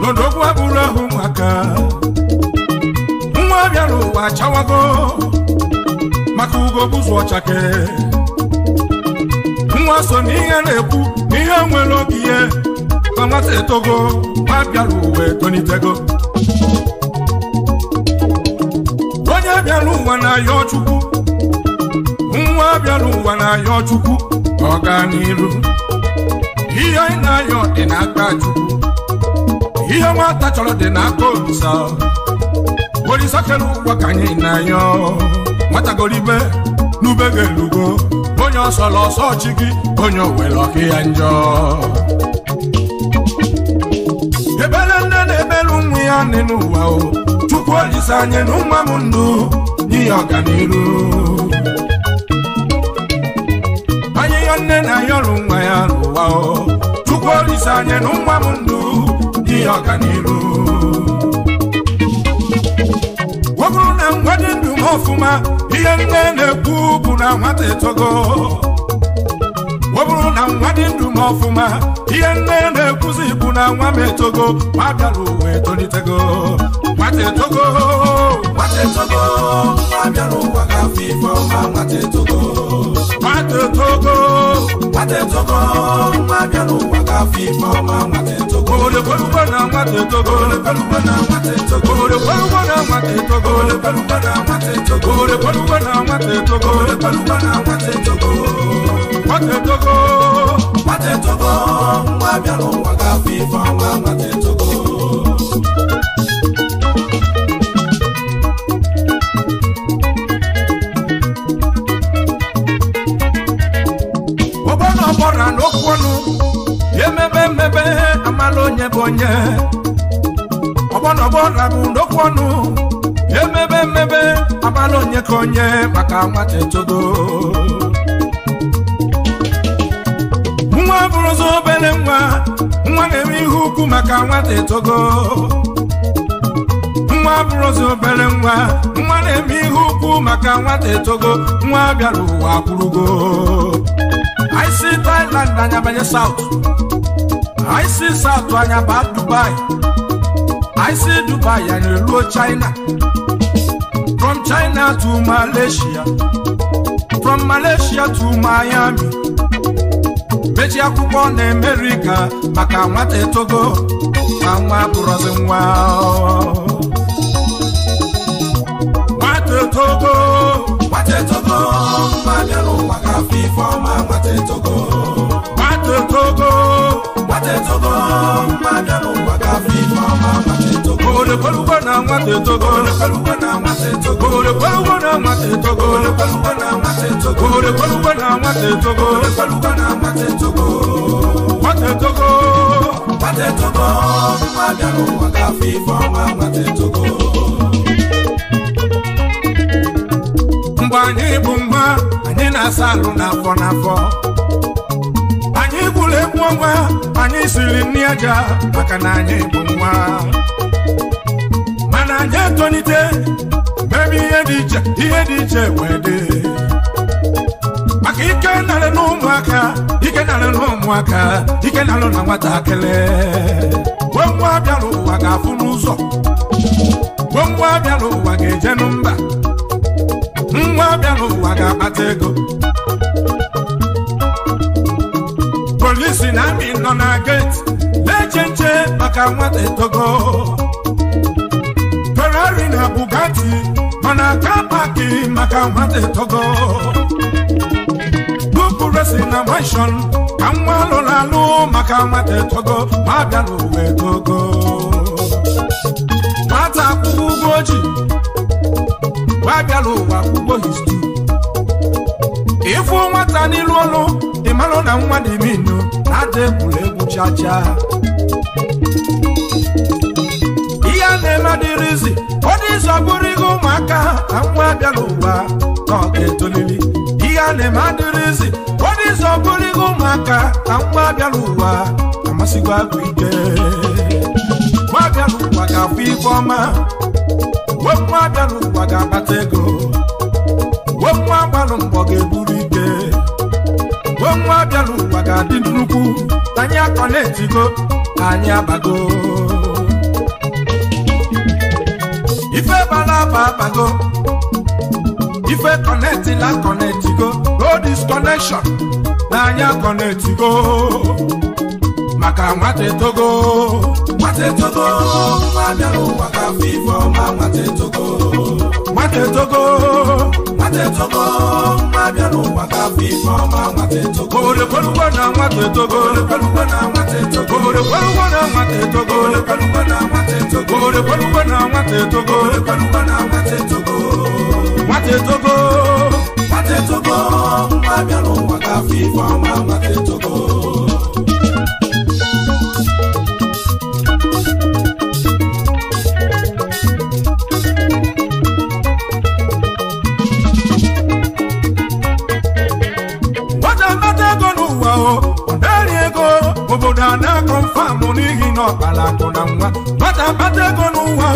n'odogwu abụrụ ahụ maka nwa bịara ụwa chawago maka ugo bụzụ ọchake nwa so n'ihe na-ekwu n'ihe nwere oge ihe ka etogo nwa bịara ụwa etonitego onye bịara ụwa na ọchukwu ọchukwu nwa bịara ụwa na ọ gaa n'iru ihe anyị na-ayọ dị n'aka Chukwu ihe nwata chọrọ dị n'aka Olisa Olisa kere ụgwọ ka anyị na-ayọ nwatagoribe n'ube ga-elugo onye ọsọrọ ọsọ chi gị onye owere ọkụ ya njọ ebere nne na-ebere ụmụ ya dị n'ụwa o Chukwu Olisa anyị na ụmụ m ndụ nye ọganiru nwanne na ya ọrụ nwa ya n'ụwa chukwu olise anya na nwa m ndụ dị ọganihu ọ bụrụ na nwa dị ndụ m ọfụma ihe nne na-ekwu bụ na nwata etogo ọ bụrụ na nwa dị ndụ m ọfụma ihe nne na-ekwuzi bụ na nwa m etogo ma bịara ụwa etolitego nwata Togo, nwata Togo, nwa bịara ụwa ka afọ ife ọma nwata etogo nwata etogo nwata etogo Ma bịara ụwa ka afọ ife ọma nwata etogo olekwelugo na nwata etogo olekwelugo na nwata etogo olekwelugo na nwata etogo olekwelugo na nwata Togo, olekwelugo na nwata Togo, olekwelugo na nwata etogo nwata etogo nwata etogo nwa bịara ụwa ka afọ ife Thank you. otu onye ọgbọnọgbọ na bụ ndokwu ọnụ emebe mmebe abalị onye ka onye maka nwata etogo nwa bụrụzi obere nwa nwa na eme ihe ukwu maka nwata etogo nwa bụrụzi obere nwa nwa na-eme ihe ukwu maka nwata etogo nwa bịara ụwa akwụrụgo anyị si Thailand anya banye South I see South Korea bad Dubai. I see Dubai and you Luo China. From China to Malaysia. From Malaysia to Miami. Mechi akwụkwọ na America maka nwata etogo ma nwa bụrụzi nwa. Nwata etogo nwata etogo mma bịara ụwa ka afọ ife ọma nwata etogo nwata etogo tetogo mpada mwaga fifo mama tetogo ole paluwa na mwa tetogo ole paluwa na mwa tetogo ole paluwa na mwa tetogo ole paluwa na mwa tetogo ole paluwa na mwa tetogo ole paluwa na mwa tetogo mwa tetogo mwa tetogo mpada mwaga fifo mama tetogo mgbe anyị bụ mma anyị na-asa alụ n'afọ n'afọ anyị gburu egwu ọgwa anyị siri nri aja maka na anyị bụ nwa mana anyị etolite mebe ihe dị iche ihe dị iche wee dị maka ike narị na ụmụaka ike narị na ụmụaka ike narị na nwatakịrị nwa bịara ụwa ga-afụ n'ụzọ nwa bịara ụwa ga-eje n'mba nwa bịara ụwa ga-akpata ego polisi na amị nọ na geti na-eche nche maka nwata etogo ferrari na bugatti nọ na ka paaki maka nwata etogo bupu resi na manshọn ka nwa alụrụ alụ maka nwata etogo ma abịa n'ụwa etogo nwata akwụkwọ ụgwọ ojii wee bịara ụwa akwụkwọ histu ịfụ nwata n'ilu olu ịmalụ na nwa dị ime na-ada egwuregwu egwu chacha ihe a na-eme dịrịzi ọ dị ụzọ bụrụ ihe ụmụaka na nwa abịa n'ụwa na ọ ga-etolili ihe a na-eme adịrịzi ọ dị ụzọ bụrụ ihe ụmụaka na nwa abịa n'ụwa amasịgo agụ ike nwa abịa n'ụwa ga-afụ ife ọma nwa abịa n'ụwa ga-akpata ego nwe nwa gbalụ mgbọ ga-eburu ike nwe nwa bịalụ ụwa ga-adị nnukwu anyị akọ na-etigo anyị abago ife bala aba abago ife kọnetila kọnetigo road is connection na anyị akọnetigo maka nwata etogo nwata etogo nwa bịalụ ụwa afọ ife ọma mata etogo mata etogo mata etogo mma bịa n'ụwa ka afọ ife ọma mata etogo olekwelugo na mata etogo olekwelugo na mata etogo olekwelugo na mata etogo olekwelugo na mata etogo olekwelugo na mata etogo olekwelugo na mata etogo mata etogo mata etogo mma bịa n'ụwa ka afọ ife ọma mata etogo na ọkpara akụ na nwa nwata kpata ego n'ụwa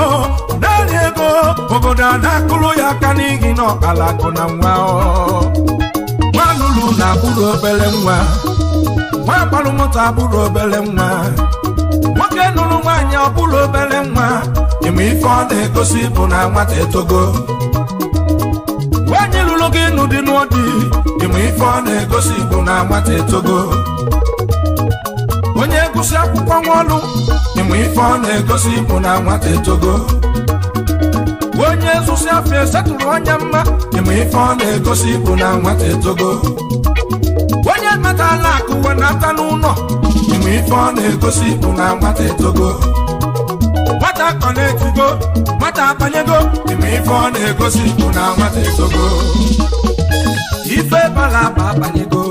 naanị ego obodo a na-akụrụ ya aka n'ihi na ọkpara akụ na nwa nwa lụrụ na abụrụ obere nwa nwa gbarụ moto abụrụ obere nwa nwoke nụrụ nwaanyị ọbụrụ obere nwa ịma ife ọ na-egosi bụ na nwata etogo nwaanyị lụrụ gị n'ụdị n'ụdị ịma ife ọ na-egosi bụ na nwata etogo onye gụsị akwụkwọ nwa ọlụ ọmụ ife ọ na-egosi bụ na nwata etogo onye zụsi afọ esetụrụ anya mma ịmụ ife ọ na-egosi bụ na nwata etogo onye metala akụ uwe na-ata n'ụlọ ịmụ ife ọ na-egosi bụ na nwata etogo nwata kọ na-etigo nwata akpanyego. ịmụ ife ọ na-egosi bụ na nwata etogo ife balaba abanyego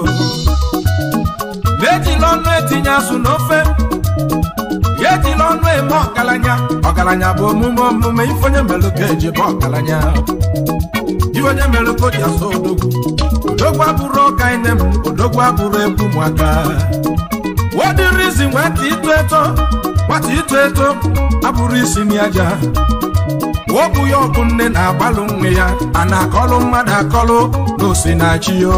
na-ejila ọnụ etinye azụ n'ofe ejila ọnụ eme ọgaranya ọgaranya bụ omume omume ife onye mere ka eji bụ ọgaranya ife onye mere ka o ji asụ odogwu odogwu abụrụ ọka ine m odogwu abụrụ egwu ụmụaka wedịrị isi nwata ito eto nwata ito eto abụrụ isi n'aja wọbụ ya ọbụ nne na-agbalụ nne ya a na-akọlụ mmadụ akọlụ na osinachi yo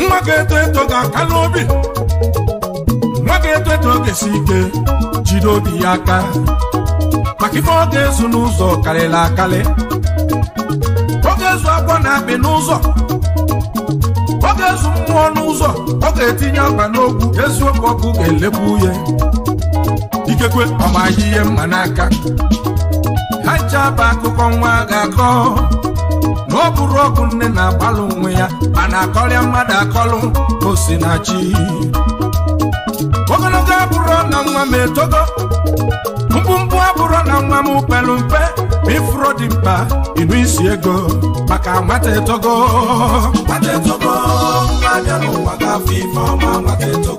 ya. nwa eto ga-aka n'obi nwa eto etu ọ ga-esi ike jide obi ya aka maka ife ọ ga-ezu n'ụzọ karịrị akarị ọ ga-ezu agwọ na akpị n'ụzọ ọ ga-ezu mmụọ n'ụzọ ọ ga-etinye akpa n'ogwu eziokwu ọkụ ga elekwu uhe ikekwe ọmaghị ihe mma n'aka ha ncha bụ akụkọ nwa ga-akọ na ọ bụrụ ọgụ nne na-agbalụ onwe ya ma na-akọrịa mmadụ akọlụ osinachi na nwa m etogo mkpumkpu abụrụ na nwa m kpelu mpe ma ifuro dị mkpa ịnụ isi ego maka nwata etogo nwata etogo n'anya n'ụwa na nwata etogo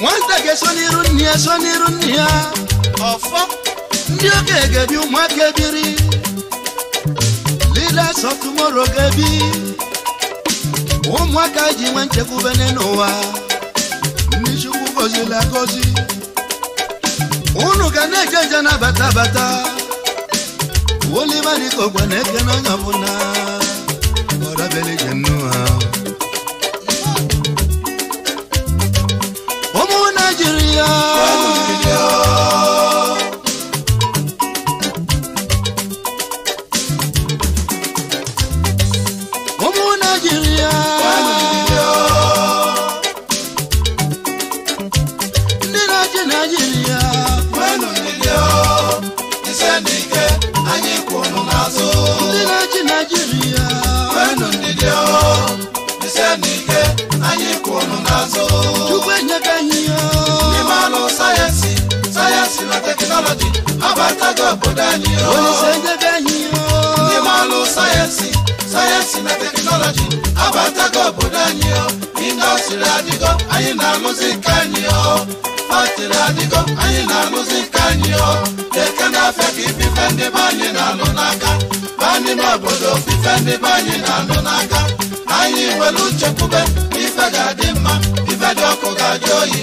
nwata ga-eso n'iru nne ya so n'iru nne ya ọfọ ndị oge ga-ebi ụmụaka ebiri leaders of tomorrow ga-ebi ụmụaka ji nwe nchekwubene n'ụwa ndị chukwu gozila gozi unu ga na-eje nje na-abata abata olimadikogwa na-eke na onye ọbụla ọrabelije nnụọ Hallelujah. alága bọ́dá ni ó. oníṣẹ́jẹ́ bẹ́yìn ó. ní máa lo sáyẹ́nsì sáyẹ́nsì na tẹkinọ́lọ́jì abataga bọ́dá ni ó. indọ́sìrì àdìgọ́ ayé na mùsíkà ni ó. pàtìrì àdìgọ́ ayé na mùsíkà ni ó. lẹ́kẹ́ náà fẹ́ kí fífẹ́ ndé báyìí nà lọ n'aka. báyìí má bọ̀dọ̀ fífẹ́ ndé báyìí nà lọ n'aka. anyị nwere uche kwube ife ga-adị mma ife dị ọkụ ga-adị oyi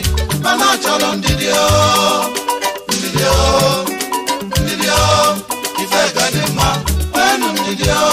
ndidi o ndidi o ife gadi ma wenu mi di o.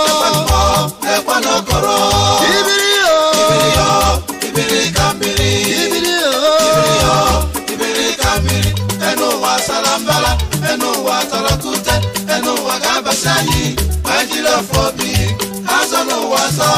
tọrọ tún tẹ ẹnu wàgá bàṣá yìí májìlá fọ bíi hásánù wàṣọ.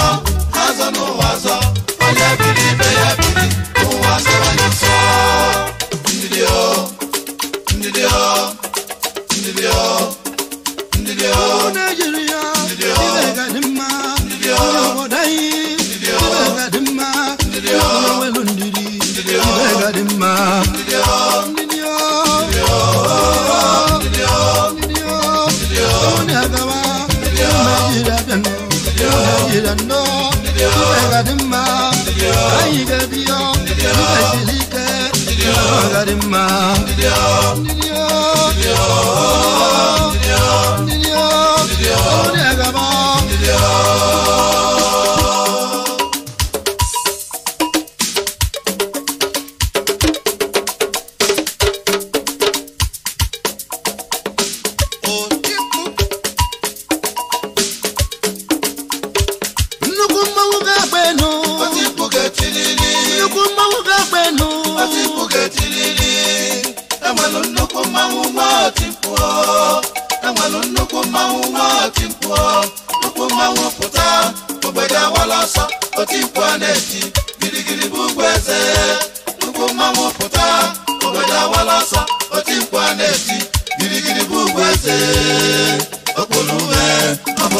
mmanwụ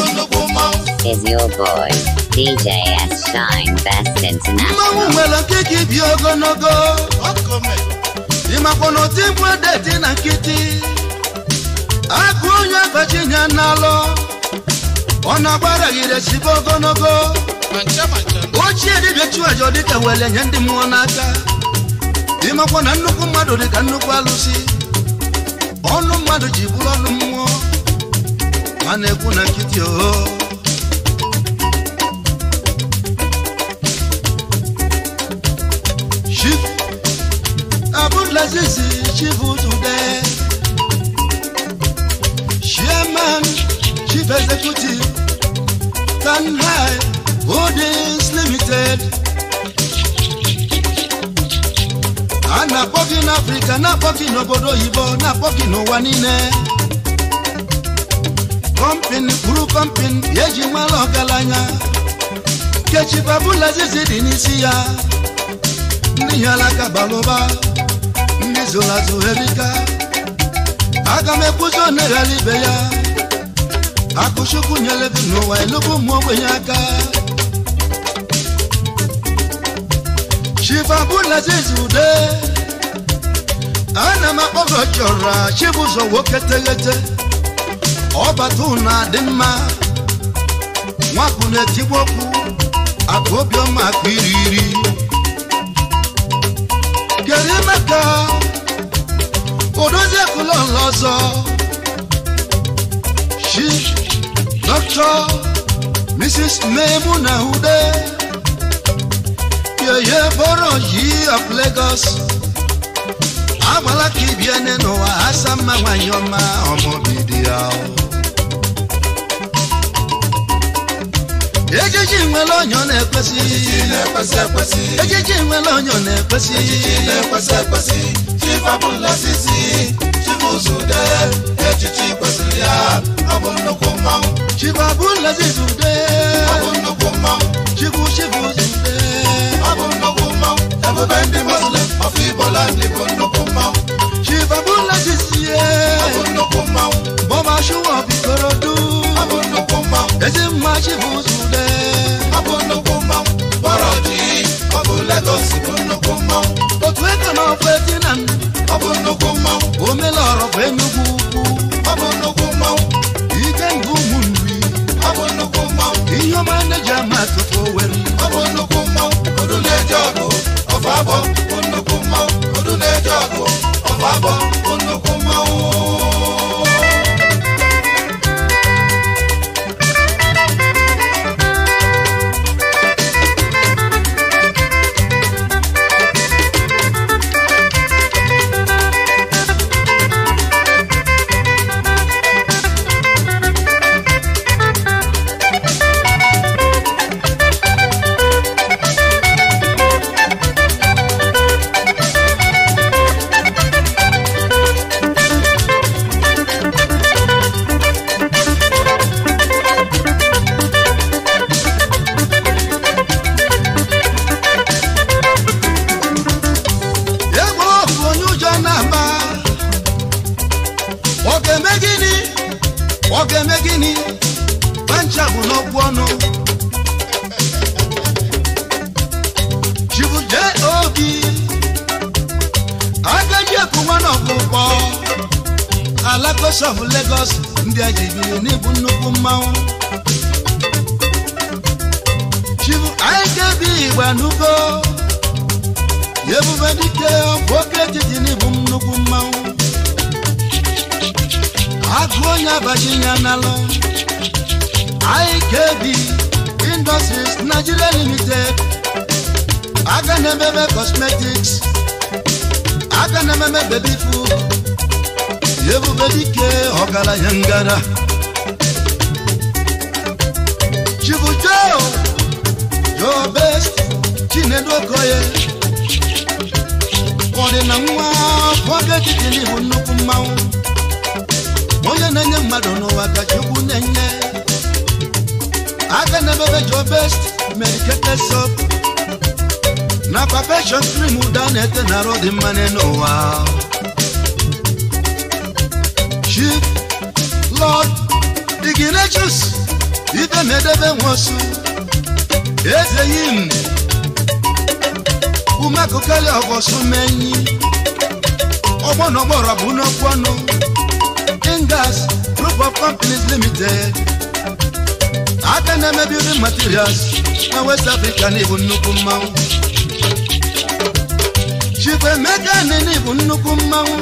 nwere your boy DJ S Shine Best International mmanwụ nwere okike
ogologo ịmakwa n'ụdị mkpu edeti na nkịtị agụ onye abachi nye n'alụ ọ na-agbaraghịre agbara chibe ogologo ochie dibịa chụaja dịka were nye ndị mmụọ n'aka ịmakwa na nnukwu mmadụ dịka nnukwu alụsị ọnụ mmadụ ji bụrụ ọnụ mmụọ a na-ekwu na nkịtị oho abụlazizi chibutude chairman chief executive tanhai holdings limited na poki na Africa, na poki na n'obodo oyibo na poki na n'ụwa niile kọmpin kwuru kọmpin eji nwere ọgaranya kechi babụla izizi dị n'isi ya ndị hialaka balụba ndị zụrụ azụ herika aga m ekwuzi oneghara ibe ya akụchukwu nyere gị n'ụwa elugbu ụmụ ogbenye aka chifa ude ana m akpọgo chọrọ chibụzọ nwoke teghete ọbatuna dị mma nwapụ na-etigbu okwu akụ obiọma akụ iri iri kedu emeka odozi ekulọla ọzọ shi dọkịta mrs memu na ude yeye bọrọ yi of lagos agbala ka ibie n'ụwa asa mma nwanyị ọma ọmụbidi ya ejiji nwere onyo na-ekwesị ejiji nwere onyo na-ekwesị chifabụlasisi chibuzude echichi kwesịrị ya ọ bụ nnukwu mmanwụ chifabụlasisi ude ọ nnukwu mmanwụ chibu chibu Everybody the Muslim of Igbo land Igbo no come out. Chief Abula Sisiye. Abun no come out. Bọ́mà Ṣúwọ̀ bí Korodu. Abun no come out. Èsì máa ṣe fún Sùdẹ́. Abun no come out. Bọ́rọ̀ máa ń lẹ́jà máa ẹjọ́ ọ̀dọ́ ọbabọ nnukwu mmọnwụ
ọdụ na-eje ọgụ ọbabọ
Virginia Nalo, IKB Industries Nigeria Limited, Aganebebe Cosmetics, Aganebebe Baby Food, Yebu Yebubedike Ogala Yangara, Chibujo, Your Best, Chinedu Okoye, Kọdịna nwa afọ ga-ejide n'ihu hunu mmanwụ onye na-enye mmadụ n'ụwa ka Chukwu na-enye aka na-emebe jọ best medicated soap na perfection cream ụda na-ete na arụ dị mma n'ụwa Chief Lord Ignatius ibe medebe nwosu eze yim ume akụkali ọgọsụ menyi ọgbọ bụ n'okwu ọnụ Nigerian Group of Companies Limited. aka na-eme building materials na West Africa na ibu nnukwu mmanwụ Chukwuemeka na ibu nnukwu mmanwụ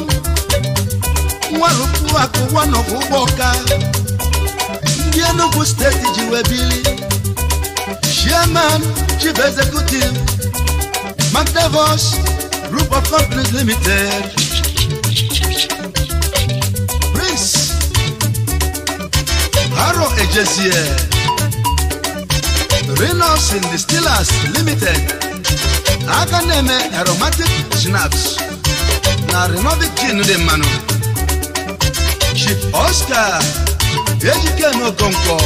nwarụpụ akụ wanọbụ ụgbọ ọka ndị Enugu steeti ji wee bili Chairman Chief Executive Magdavos Group of Companies Limited. Ejezie. Reynolds and Distillers Limited. Aka na-eme aromatic snaps na Renovic gin dị mmanụ. Chief Oscar Ejikene Okonkwo.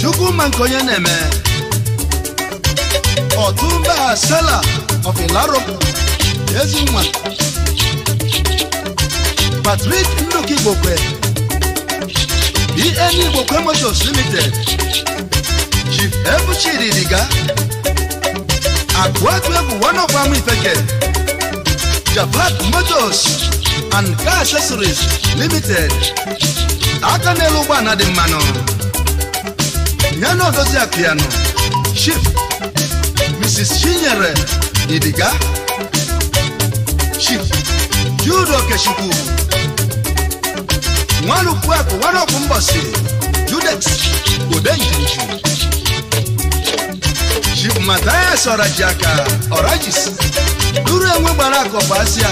Chukwuma nke onye na-eme. Otumba Sela of Ilaro. Ezinwa. Patrick Nnukwu Igbokwe. EM Igbo Kwe Motors Limited Chief Ebuchiri Diga Akwaku Egwu one of am Ifeke Japan Motors and Car Accessories Limited aka n'elu ụgbọala dị mmanụ yana odozi akụyanụ Chief Mrs. Chinyere Idiga Chief Jude Okechukwu wọn lùkú ẹkọ wọn lọkù ń bọ sí judex kò dé ìjìnjì shipmatthias ọ̀rajàkà ọ̀rajìs dúró enwe gbara akọ̀pọ̀ asịa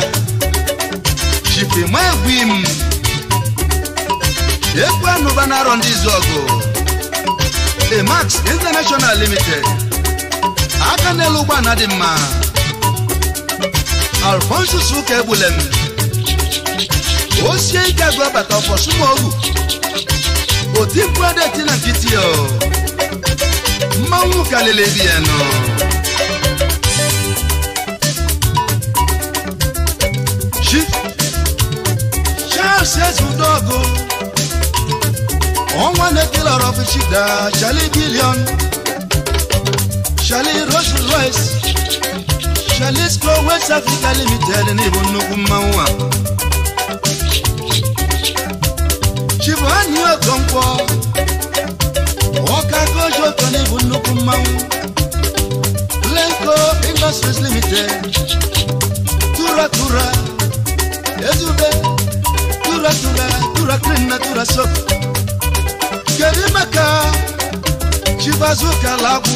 shipima egwu im ekwu anụba na-arọ ndị izu emax international limited aka n'elu ụgbọ na mma alfonsus ụka egbulem ó ṣe é jágbe bàtà ọ̀fọ̀ súnmọ́ òwú òtí kúrẹ́dẹ̀ tí nà kìtì ọ̀ máa ń wù kálẹ̀lẹ̀ bí ẹ̀ nà. ṣí ṣáàṣì ẹ̀sùn dọ́ọ̀gù wọ́n wá ní kí lọ́rọ̀ fi ṣì dá ṣálí bílíọ̀nù ṣálí Rolls Royce ṣálí Square West Africa Limited ní ìbò nnukwu mmanwụ a. Chibụanụ Okonkwo ọka koji Okene bụ nnukwu mmanwụ Lenko Industries Limited tura ezube tura tura na tura kedu maka Chibazuka lagwụ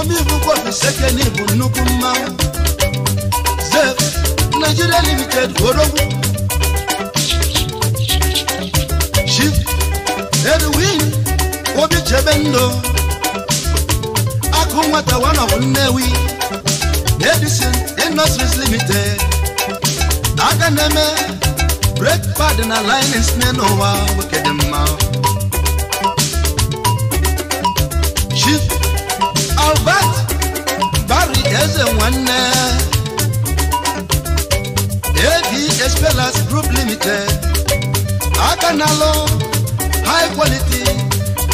omi bụkwa bụ nnukwu mmanwụ Zef Nigeria Limited Orogwu Edwin Obi Chebendo Akụ nwata one of Nnewi Edison Limited aka na-eme break pad na linings nne n'ụwa nwoke dị mma Chief Albert Barry Eze nwanne AD Espelas Group Limited aka na-alụ high quality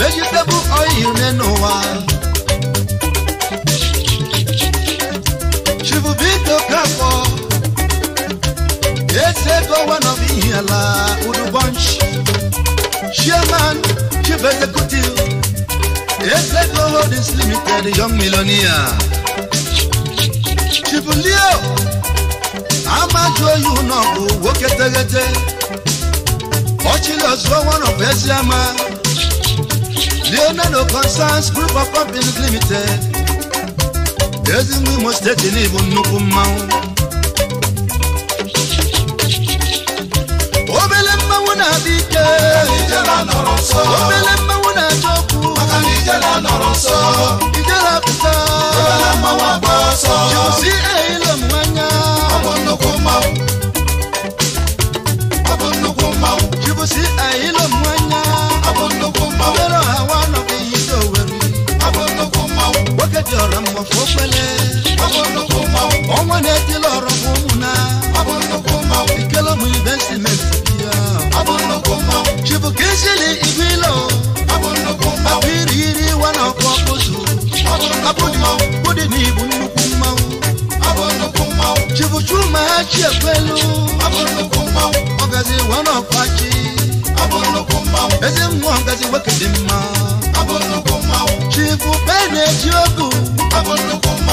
vegetable oil nínú wa. Shivubito Kapo, Esego one of Ihiala Udu Bunch, Chairman, Chief Executive, Esego Holdings Limited, Young Millionaire. Shivulio, Amajo Yunobu, Woketegete watching us for one of Esiama. Leonardo Concerns Group of Companies Limited. There's a new Ezi Mwimo State Ilibu nnukwu mmanwụ. Obele mmanwụ na-adị ike. Obele mmanwụ na-achọ okwu. Ijele apụta. Jiwusi ehilo mmanya. Ọ bụ nnukwu mmanwụ. si ẹ̀yìn ló mú ẹ̀yà. Abọ́ndókó máa wọ. Yọ̀rọ̀ àwa nọ bí yìí tó wẹ̀rù. Abọ́ndókó máa wọ. Bókèjì ọ̀rọ̀ mọ̀ fún Ọmọ ní ẹtí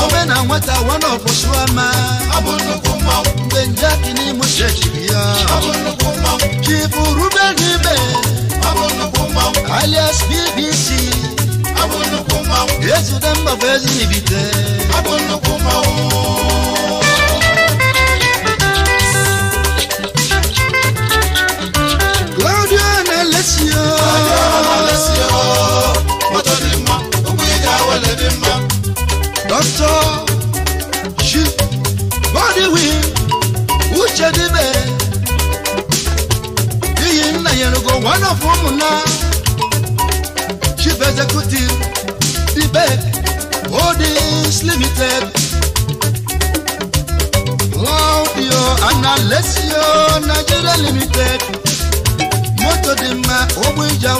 obe na nwata wana ọkwụsụama mgbe nje akini m shechiri ya chifu rube n'ibe alias bbc ezude mgbabụ ezi n'ibite Ghana, Chief Executive, DBEC Holdings Limited. Claudio Analesio Nigeria Limited. Moto dị mma, ogbu ija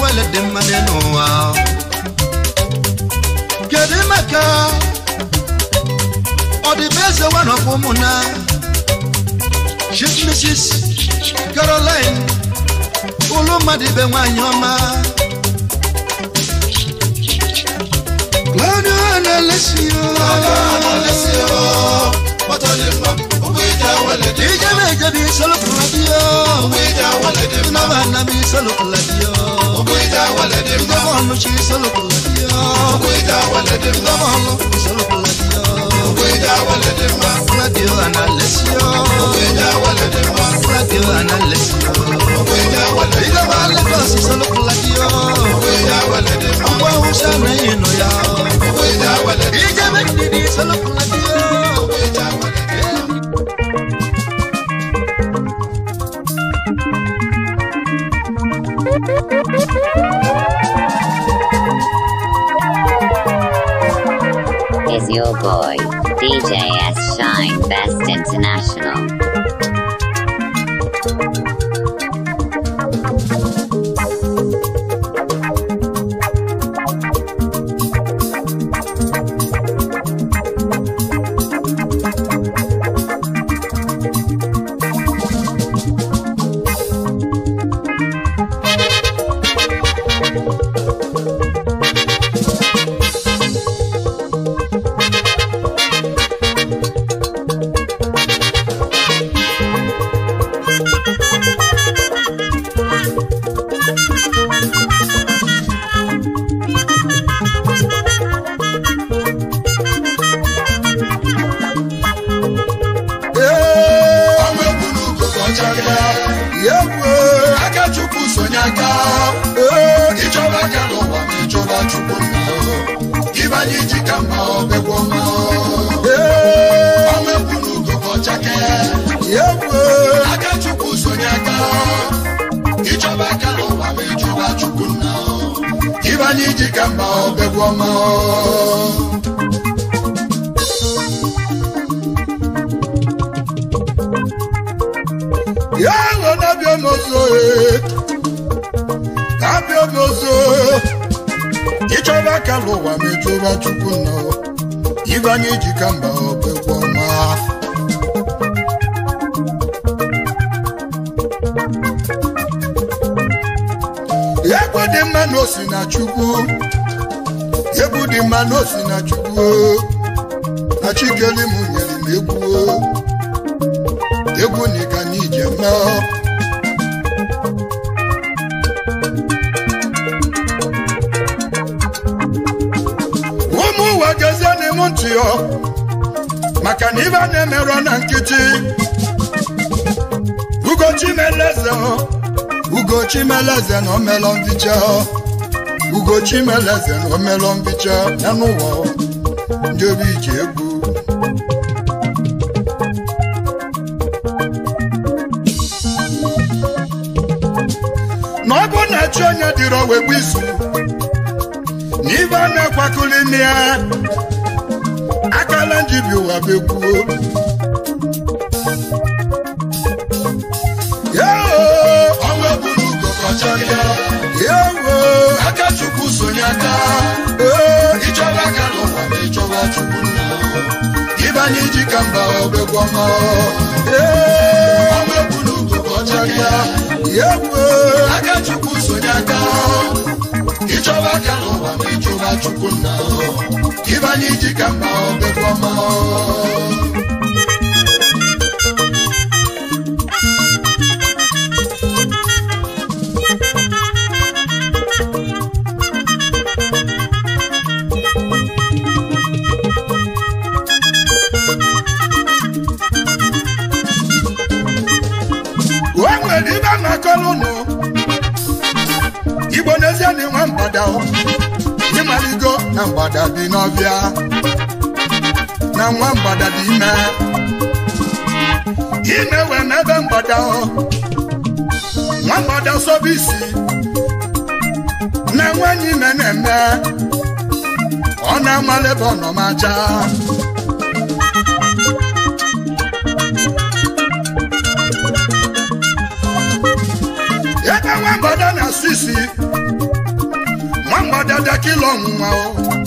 Get in my car. n'ụwa. the best one of ụmụnna Chief Mrs. Caroline olu mmadụ ibe nwanyị ọma Claudio Analesio ije na-eje bụ isolopụla di ya naba nna m isolopụla di ya ndọbọọnụ chi isolopụla di ya ndọbọọnụ isolopụla It's
is your boy. DJS Shine Best International.
chimeleze na omelo mbicha ya n'ụwa ndị obi ji egwu na ọ bụ na chi onye dịrị owegbu isu, na ibe a na ya akala njibi ụwa bekwuo chukwu nna ịbanye iji ka mba obegwu ya aka chukwu sonye aka ịchọba aka n'ụwa ma ịchụba chukwu nna ka mba na mgbada dị n'ọbịa na nwa mgbada dị ime ime we n'ebe mgbada nwa mgbada sobe isi na nwanyị ime na-eme ọ na-amala ebe ọ ebe nwa mgbada na-asụ isi nwa mgbada dakila ọnwụnwa o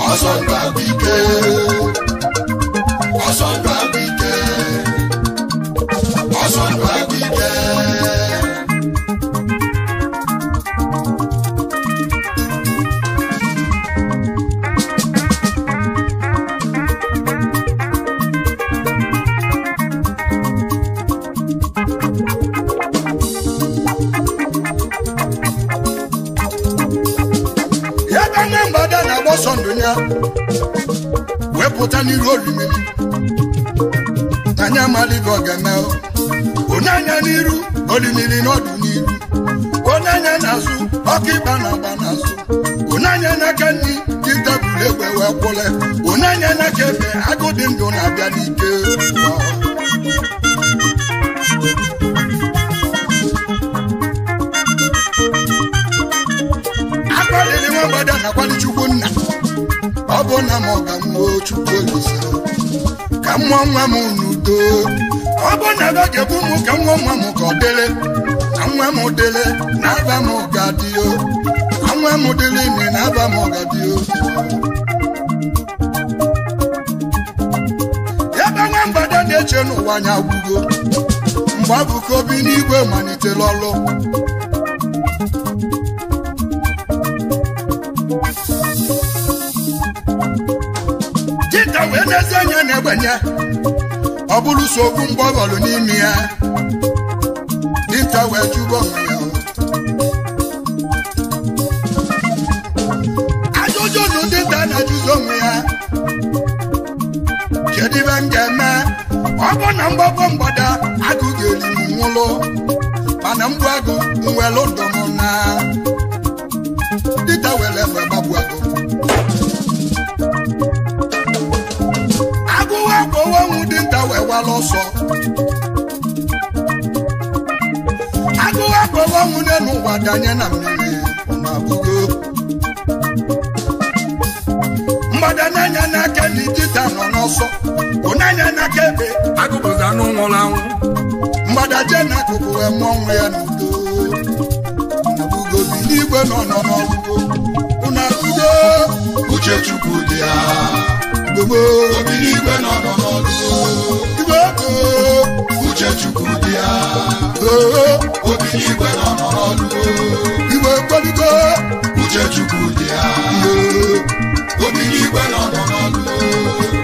ọsọta bike
ọsọta bike ọsọta.
wepụta n'iru olumiri anyị amalịghị ọgana onye anya n'iru olumiri n'ọdụ n'iru onye anya na-azụ ọkụ ịba na agba n'azụ onye anya n'aka nri dị bule egbe wee kwụle onye anya n'aka ebe agụ dị ndụ na-abịa n'ike nwa m ọka mmụọ mmụọ nwa m n'udo ọ bụ na ga-ebu m ọ na nwa m dịrị na aba m gadịo na nwa m dịrị ime na aba m gadịo ebe nwa eche n'ụwa anya mgbe n'igwe malitere ezi anya na-egbenye ọ bụrụ so okwu mgbe ọ n'ime ya nta wee jụba onwe ya ajụjụ nụ a na-ajụzi onwe ya kedu m ga-eme ọ bụ na mgbago mgbada agụ ga-eri m nwụlụ mana mgbu agụ nwere ụdọ m na ọzọ agụ nwunye n'ụwa danye na mmiri na-abụgo mgbada na n'aka na idita nọ n'ọsọ n'aka ebe agụpụta anụ anwụ mgbada n'akụkụ ya n'udo nabụgo n'igwe nọ nọ uchechukwu dị n'igwe nọ nọ uchechukwu dị ya obi n'igwe na n'ọrụ igwe kpaligo uchechukwu dị ya obi n'igwe na n'ọrụ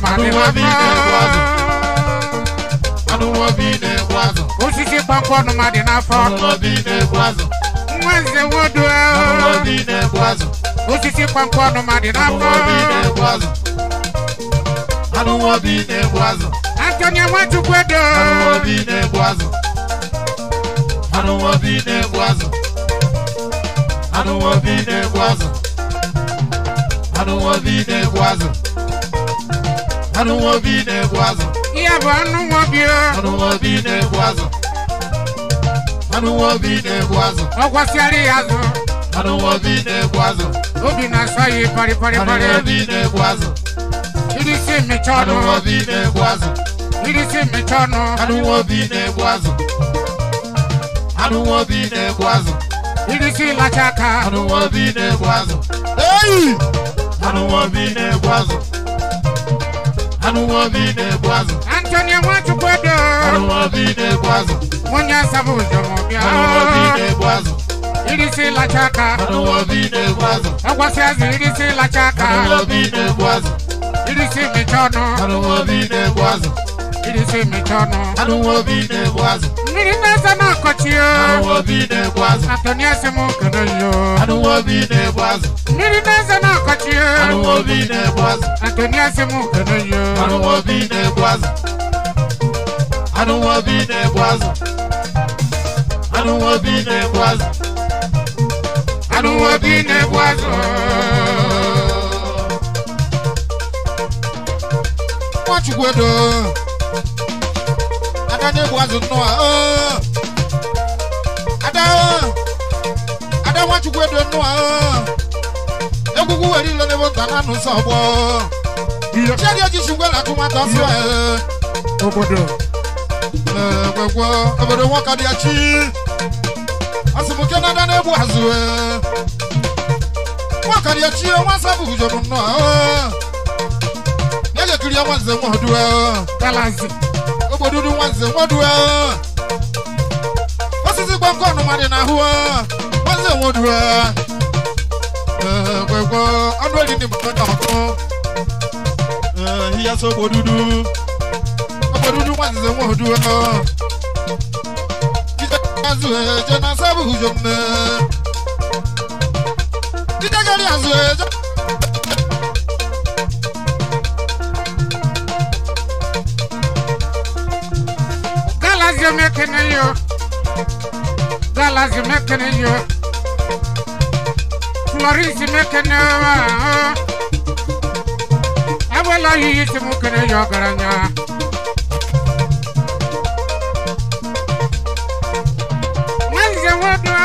I don't want be nebwazo. I don't want be nebwazo. Osisi pankwa no madi na fọ. I don't want be nebwazo. Mwenze wodo. I don't want be nebwazo. Osisi pankwa no madi na fọ. I don't want be nebwazo. I don't want be nebwazo. Antonia watu kwedo. I don't want be be nebwazo. I anụ obi na-egbu azụ ihe bụ anụ nwobi anụ nwobi na-egbu azụ anụ obi na-egbu azụ ọ gwasịara ya azụ anụ obi na-egbu azụ obi na-asa ya ịparịparịparị anụ obi na-egbu azụ si mmecha ọnụ anụ nwobi na-egbu azụ si mmecha ọnụ anụ obi na-egbu azụ anụ obi na-egbu azụ irisi lacha aka anụ obi na-egbu azụ eyi anụ obi na-egbu azụ anuwavine bwazo antonia mwatukodo anuwavine bwazo monya sabuzo mobya anuwavine bwazo irisi la chaka anuwavine bwazo agwasiazi irisi la chaka anuwavine bwazo irisi michono anuwavine bwazo irisi michono anuwavine bwazo sana kotiyo anuwabi ne bwazo Antonia semu kanoyo anuwabi ne bwazo Niri ne sana kotiyo anuwabi ne bwazo Antonia semu kanoyo anuwabi ne bwazo anuwabi ne bwazo anuwabi ne bwazo anuwabi ne bwazo Mwachugwedo Adane bwazo noa oh ada ada nwachukwu edo nnụ ahụ egwugwu were ile n'ebe nta na nsọ ọgbọ chedi echichi ngwe na akụmata sụ obodo egwegwo obodo nwoke dị echi asụmke na ada na-egbu azụ nwoke dị echi e, nwa nsọ e. bụ gujoro nnụ ahụ na-ejekiri ya nwanze nwa ọdụ e. obodo nwanze nwa ọdụ kwekwe ọnụ mmadụ na ahụ nwanne nwe oduru eh, kwekwe ọnụ eri ndị mkpọ na ọkụ eh, ihe so ogbo dudu ogbo dudu nwanne nwe oduru azụ eh, eje na sabu ujo mme jidegharị azụ eje Galaxy Mechanic da lazime kene yo Florence me kene wa Awala yi timu kene yo garanya Manze wadwa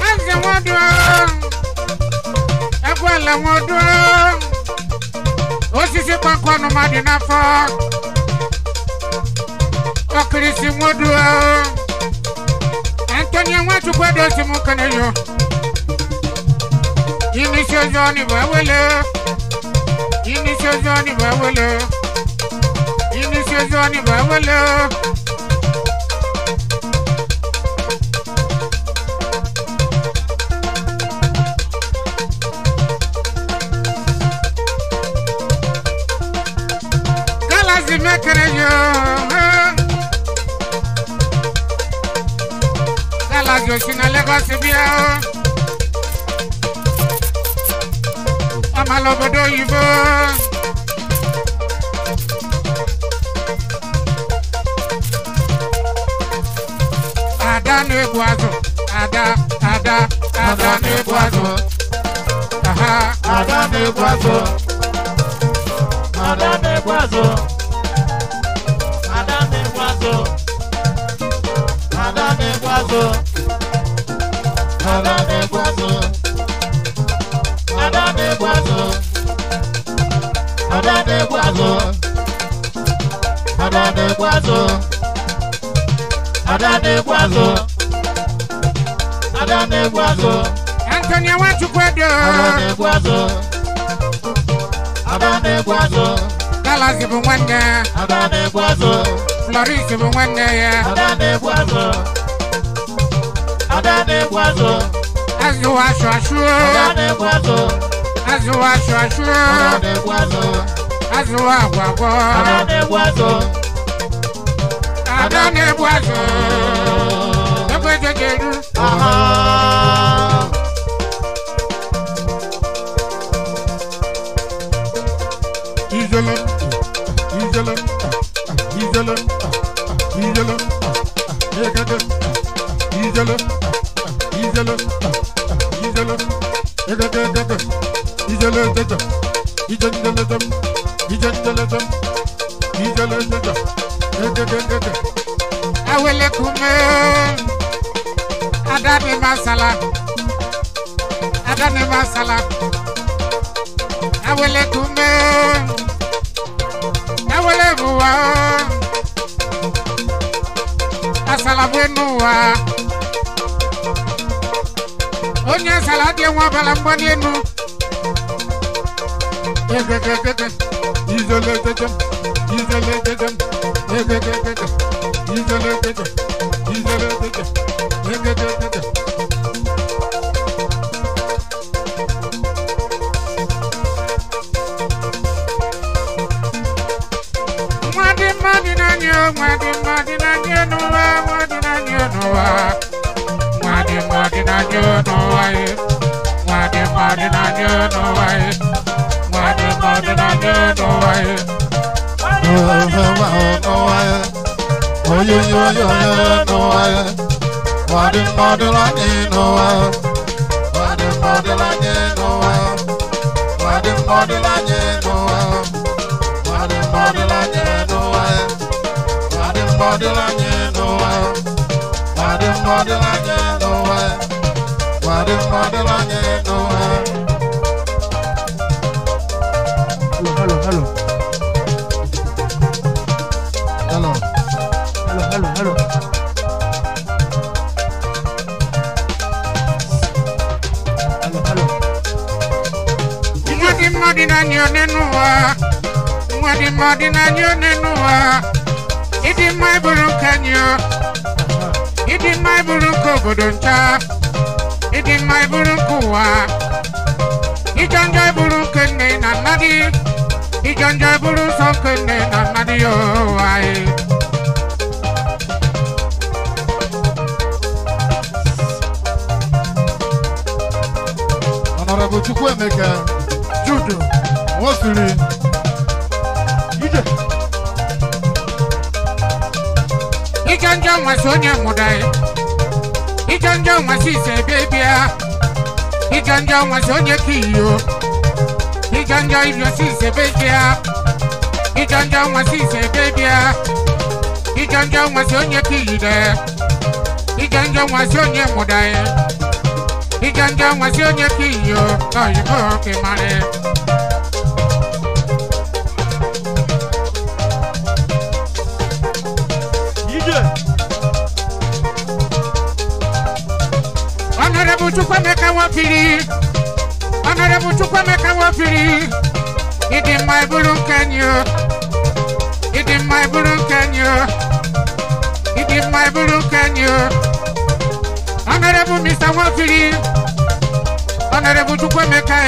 Manze wadwa Agwala wadwa nkɔ no ma de nafa ɔkirisi nwodoa antonia nwatukwa dosi mu kana yo yini sozo ni bawele yini sozo ni bawele yini sozo ni bawele. Galaxy Oshina Lagos bí ẹ o. Ọmọ lọ́bọ̀dọ̀ òyìnbó. Ada na-egbu azụ. Ada Ada Ada na-egbu azụ. Ada na-egbu azụ. Ada na-egbu azụ. kwazo adade kwazo adade kwazo adade kwazo adade kwazo adade kwazo adade kwazo Anthony Awachukwedo adade kwazo adade kwazo Dallas ibunwanda adade kwazo Florence ibunwanda ya adade kwazo Ọ̀dà ni kwaso. Ẹ̀sìn wa aṣọ aṣọ. Ọ̀dà ni kwaso. Ẹ̀sìn wa aṣọ aṣọ. Ọ̀dà ni kwaso. Ẹ̀sìn wa àgbàgbọ́. Ọ̀dà ni kwaso. Ọ̀dà ni kwaso. Ẹgbẹ́ jẹjẹrú.
Ìjọlọ. Ìjọlọ. Ìjọlọ. Ìjọlọ. Ìjọlọ. Ìjọlọ jealous, he's jealous, he's jealous, he's jealous, he's jealous, he's jealous, he's jealous, he's jealous,
awele kume adani masala adani masala awele kume awele buwa asala buenuwa onye zara adị nwa ọbara mgbali elu nwa dị mmadụ na-anya nwa dị mmadụ na-anya n'ụwa nwa dị na-anya n'ụwa them walking on you know why. Why them walking on you know them Oh, oh, oh, oh, oh, oh, you, you, you, you know why. Why them walking on you know why. Why them walking on you know why. Why them walking on you
you you you nowe Młody modelo nie nowe Halo, halo, halo
Halo Halo, halo,
halo Halo, halo Młody modelo nie nowe Młody modelo nie Idi mai buru kanyo my burúkú obodo nta ịdị mma burúkú ụwa ijọ njọ burúkú nne na nna gị ijọ buru nsọ nke nne na nna gị
chukwe meka, Chukwuemeka Judo Nwosiri
Ije Ike njọ nwesị onye mụda ijanja nwansi ise bebia ah. ijanja nwansi onye kiyo ijanja ibiosi ise bebia ah. ijanja nwansi ise bebia ah. ijanja nwansi onye kiyide ijanja nwansi onye mudaye ijanja nwansi onye kiyo oyibo kemare. Okay, Chukwemeka Wafiri, Honorable Chukwemeka Wafiri, it in my Burun Kenya, it in my Burun Kenya, it in my Burun Kenya, Honorable Mr. Wafiri, Honorable Chukwemeka,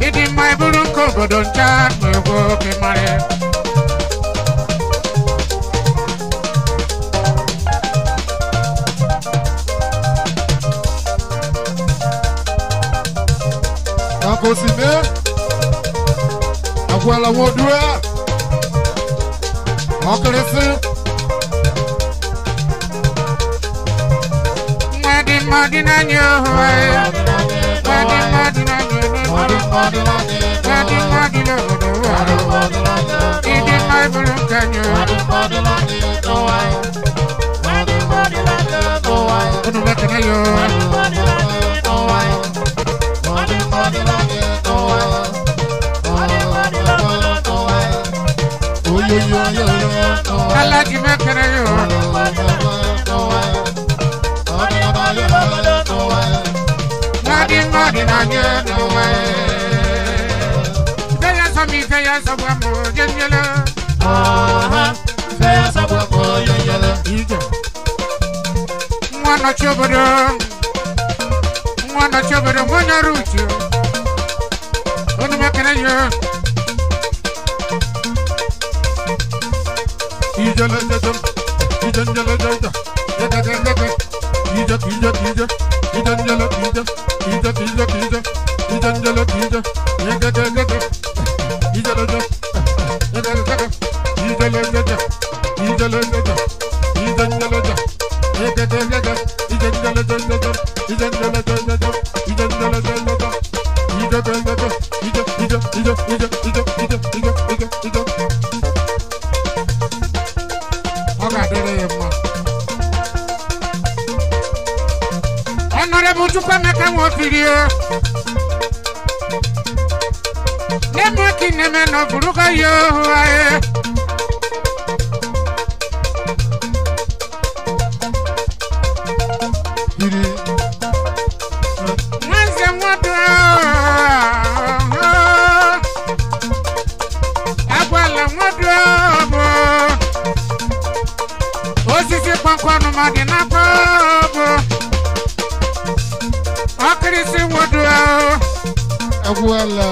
it in my Burun Kogodoncha, oh, we oh, will be married. akosime akwala wodua ọkirisi. Madi madi na nye ohoe. Madi madi na nye ohoe. Madi madi na nye ohoe. Madi madi na nye ohoe. Idi mai bulu ka nye ohoe. Madi madi na nye ohoe. Madi madi na nye Kalaki mekere yo. Madi madi na nye no way. Feya sa mi feya sa bwa mo yen yele. Aha, feya sa bwa mo yen yele. Mwana chobodo. Manda chovere mona rucho Ono makana yo Ijala jajam
Ijan jala jaja Jaja ja, Ija ija ija Ijan jala ija Ija ija ija Ijan jala ija Jaja jaja Ijala jaja Jaja jaja Ijala jaja Ijala jaja ja, jala jaja Jaja jaja
Nemo kineme no buruka yo ae ọmọ dị na kpọọbụ ọkịrịsị nwodo ahụ egwuola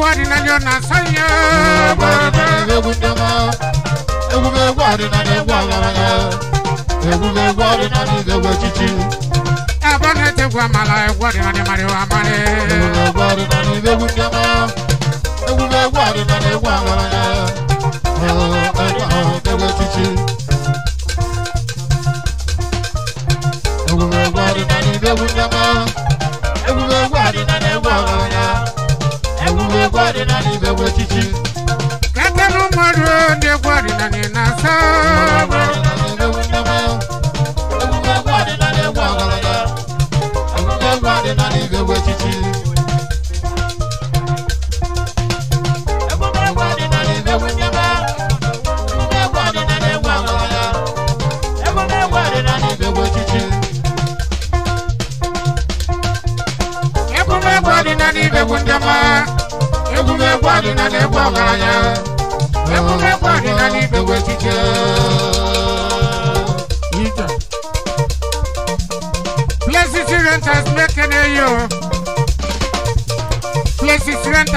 egwuregwu adịnala na asanye egwu ndema egwuregwu adịnala egwu agaranya egwuregwu adịnala egwu echichi ebe ọ na-etegwu amala egwu ọdịnala mara iwe amara egwu ọdịnala egwu ndema egwuregwu adịnala egwu agaranya egwu echichi egwuregwu adịnala egwu ndema Kata no mwadu de gwari na ni na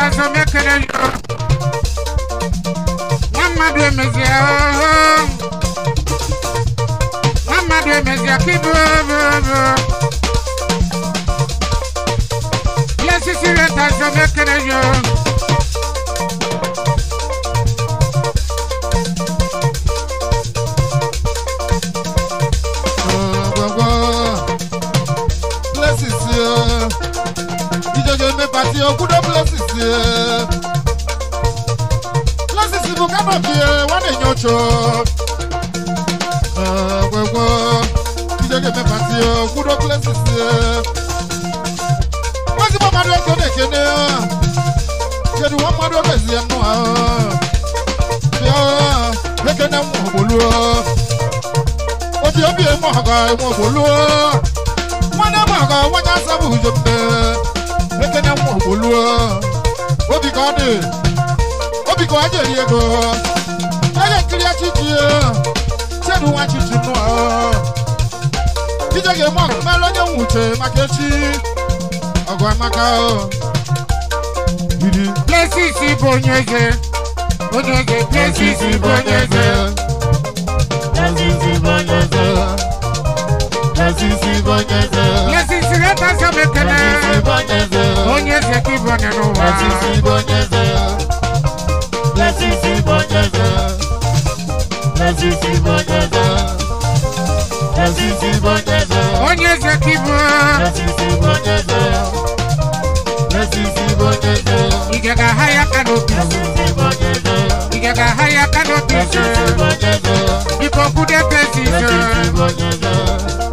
Sasa mekere yo Mama dwe mezia Mama dwe mezia kibu Yes, it's your time to make it a year. me party o kudo places ye. Places ibu kama fie wane nyocho. Wewe kije ke me party o kudo places ye. Wazi mama do to de kene. Kedu wa mama do be zi anu a. Ya, leke na mo bolu o. Obi obi e mo ga e mo bolu o. Wana mo ga wanya sabu jembe ekene mwa boluo obi ka ọ dị obi ka ọ jeri ego ege nkiri echichi chedu nwa chichi nụọ ije ga-eme ọgụ mere onye nwuche maka echi ọgụ amaka biri plesis bụ onye eze onye eze plesis bụ onye eze plesis bụ onye eze plesis bụ onye eze sireta samekele onye bo bo bo wa. eze ka ibonye n'ụwa onye bo eze ka ibu ike ga-aha ya aka n'obi ike ga-aha ya aka n'obi biko kwude pesi ise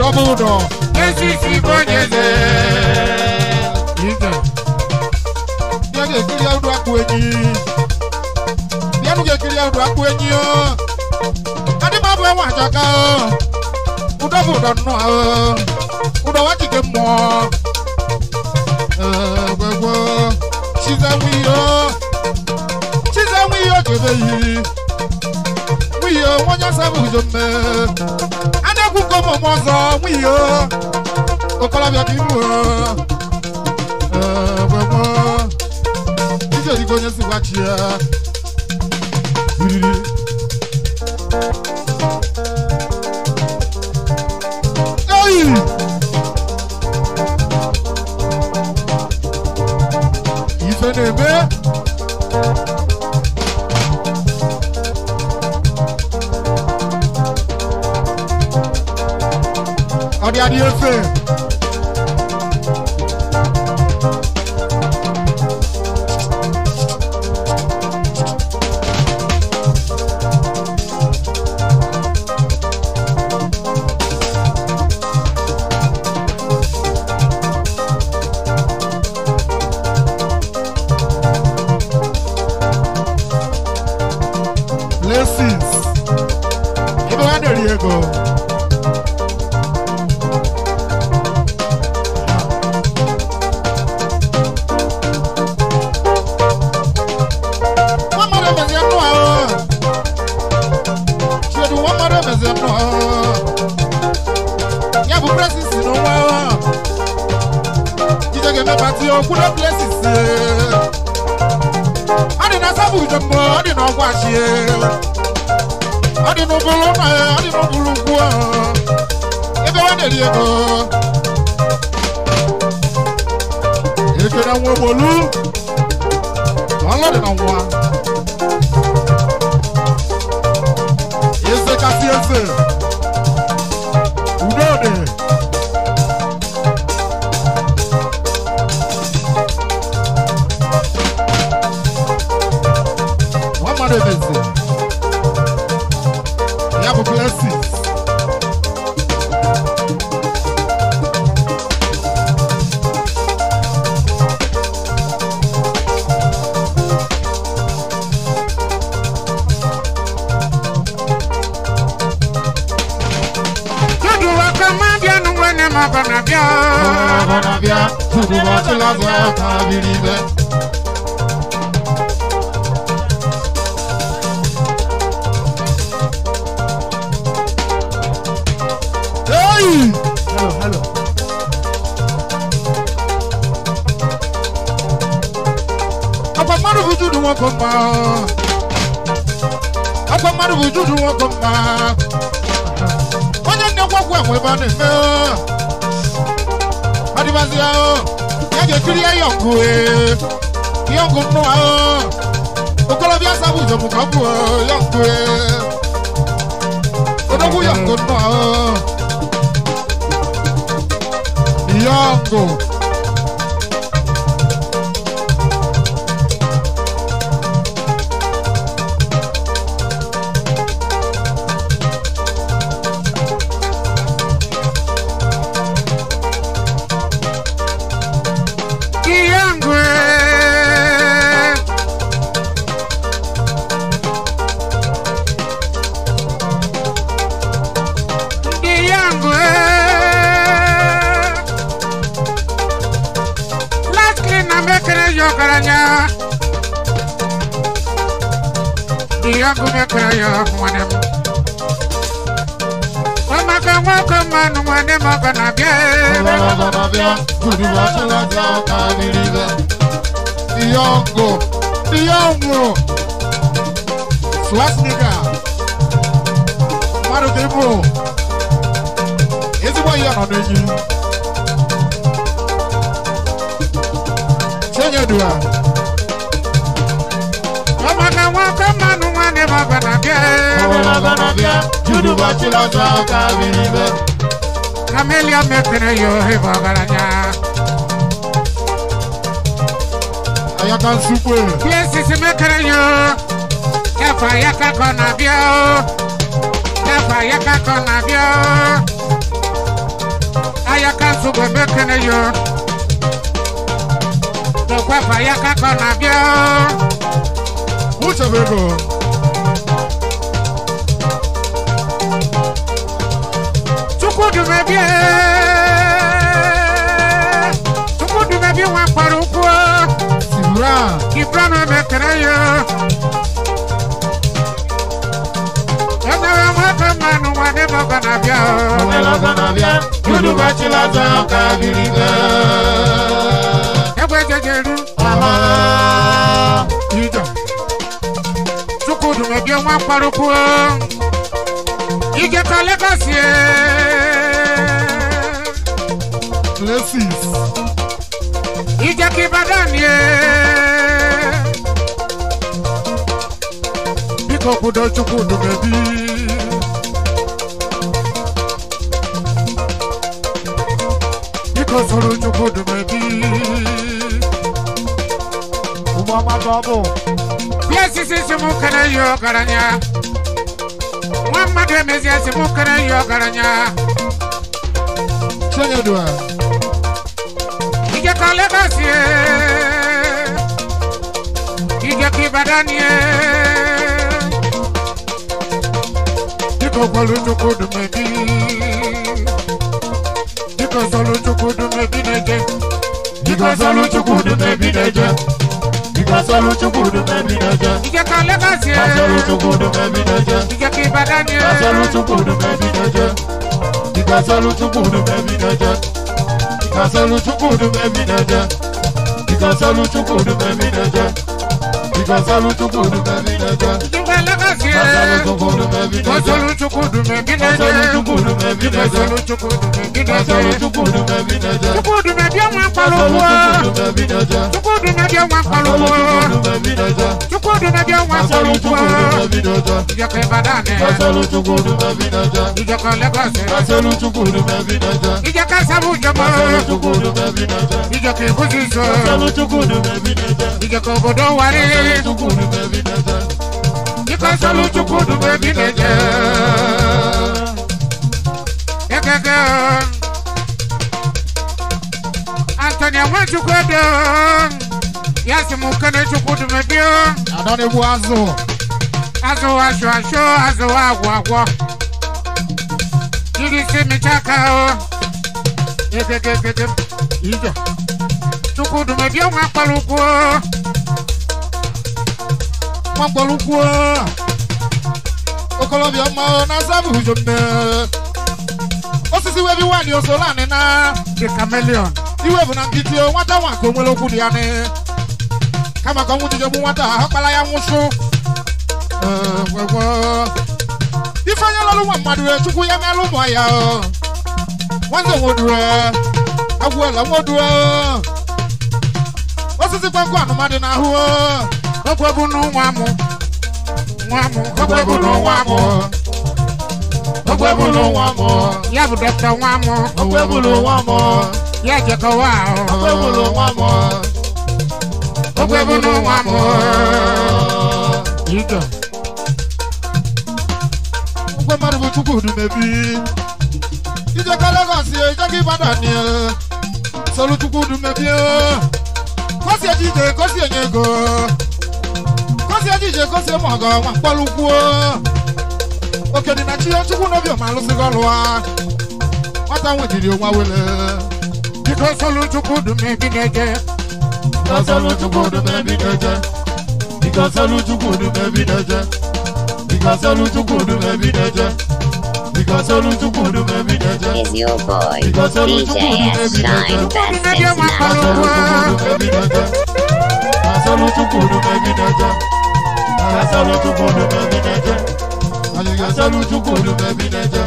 dɔbɔdɔ esisi kɔnyɛsɛ yinzɛ bianu kekele awo do akpo enyi bianu kekele awo do akpo enyi o adimabu ɛwɔ adzɔka o udɔbɔdɔ nɔ o udɔ wa tike mɔ ɛɛ eh, gbɛgbɔ sizawi o sizawi o kebe yi wi o wɔnyasa bu zomɛ dẹ́kun kó mọ̀ mọ́ sọ wí o ọ̀pọ̀lọpọ̀ kì í mú ọ ọ̀pọ̀pọ̀ níṣẹ́ ìdíkọ̀ yẹn sì wá kí ah? ẹ. Efe. ka biri bɛ. kameliya mɛ tɛnɛ yo he bɔgɔla ɲa. a y'a ka sugu ye. fiye sisi mɛ kɛnɛ yo. kɛfɛ a y'a ka kɔnɔ biyo. Oh. kɛfɛ a y'a ka kɔnɔ biyo. Oh. a y'a ka sugu mɛ yo. kɛfɛ a y'a ka kɔnɔ biyo. u ma Tukudume bien Tukudume bien wa parukwa Sibra Kibra me metraya Enawe mwata manu wane loga na bia Mwe loga na bia Yudu bachila za ukabiliga Ewe jejeru Aha Yudu Tukudume bien wa parukwa ìjẹta lẹ́kọ̀sì ẹ̀. places. ìjẹ̀kí ìbàdàn ni ẹ̀. bíkọ́ gbọ́dọ̀
chukwu dùmẹ̀bí.
bíkọ́ sọ̀rọ̀ chukwu dùmẹ̀bí. ụgbọ amadụ ọ bụ. places is mụ kere ihe ọgaranya ma de me zia si mu kana yo garanya Sonya dua Ige kale basie Ige ki badanie Diko kwalu nyoko dumedi Diko zolu nyoko neje Diko zolu nyoko dumedi neje Pasoro chukudu memi naja. Ije ka Lagos ye. Pasoro chukudu memi naja. Ije ki Ibadan ye. Pasoro chukudu memi naja. Ika solu chukudu memi naja. Ika solu chukudu memi naja. Ika solu chukudu memi naja. Ika solu chukudu memi naja. Chukwudumedi ọmọ akpalowo. Chukwudumedi ọmọ akpalowo. Chukwudumedi ọmọ akpalowo. Ìjọkọ Ìbàdàn ni. Ìjọkọ Lagos ni. Ìjọkọ Sábù Jọba kasalu chukudu bebi neje ekeke antonia mwe chukudu yasi mukene chukudu bebi adone bu azu azu asho asho azu agwo agwo jirisi michaka o ekeke ekeke ijo chukudu bebi mwa paluku o mwankpọlụkwuo okolobịa ọma na azabu hujombe osisi webi nwanyị osolani na the chameleon iwe bụ na nkitio nwata nwa nke onwere okwu dị ya ni kama ka ọnwụ jijegbu nwata ahụ kpara ya nwụchụ ifeanya lọrụ nwa mmadụ wee chukwu ya merụ ụmụ ya nwanne nwodue agwụela nwodue osisi kwankụ anụmadị na ahụ okwebunu nwamu nwamu okwebunu nwamu okwebunu nwamu ya bụ dọkịta nwamu okwebunu nwamu ya jekọwa ahụ okwebunu nwamu okwebunu nwamu ịga ngwe mmadụ bụ chukwu dumebi ijekọ legọs ijekọ ibadan solu chukwu dumebi kosi ejide kosi enye ego onye ejije gosi ma ọgọ nwa mkpọrọ oke dị na chi ya chukwu n'obiọma alụsịghị ọrụ a nwata nwetiri onwa wele biko solu chukwu dum ebi na-eje biko solu
chukwu dum ebi na-eje biko solu chukwu dum ebi na-eje biko solu chukwu dum ebi na-eje biko solu chukwu dum ebi na-eje is your boy DJ Shine Best is now
over. Solu chukwu dum ebi na-eje Asọlu chukwu baby, bi n'eje. Anyị asọlu chukwu baby, bi n'eje.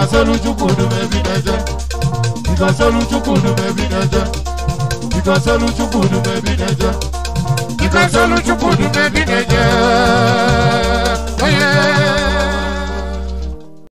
Asọlu chukwu dube baby, n'eje. Iko asọlu chukwu dube baby, n'eje. Iko asọlu chukwu dube baby, n'eje. Iko asọlu chukwu dube baby, n'eje.
Oye.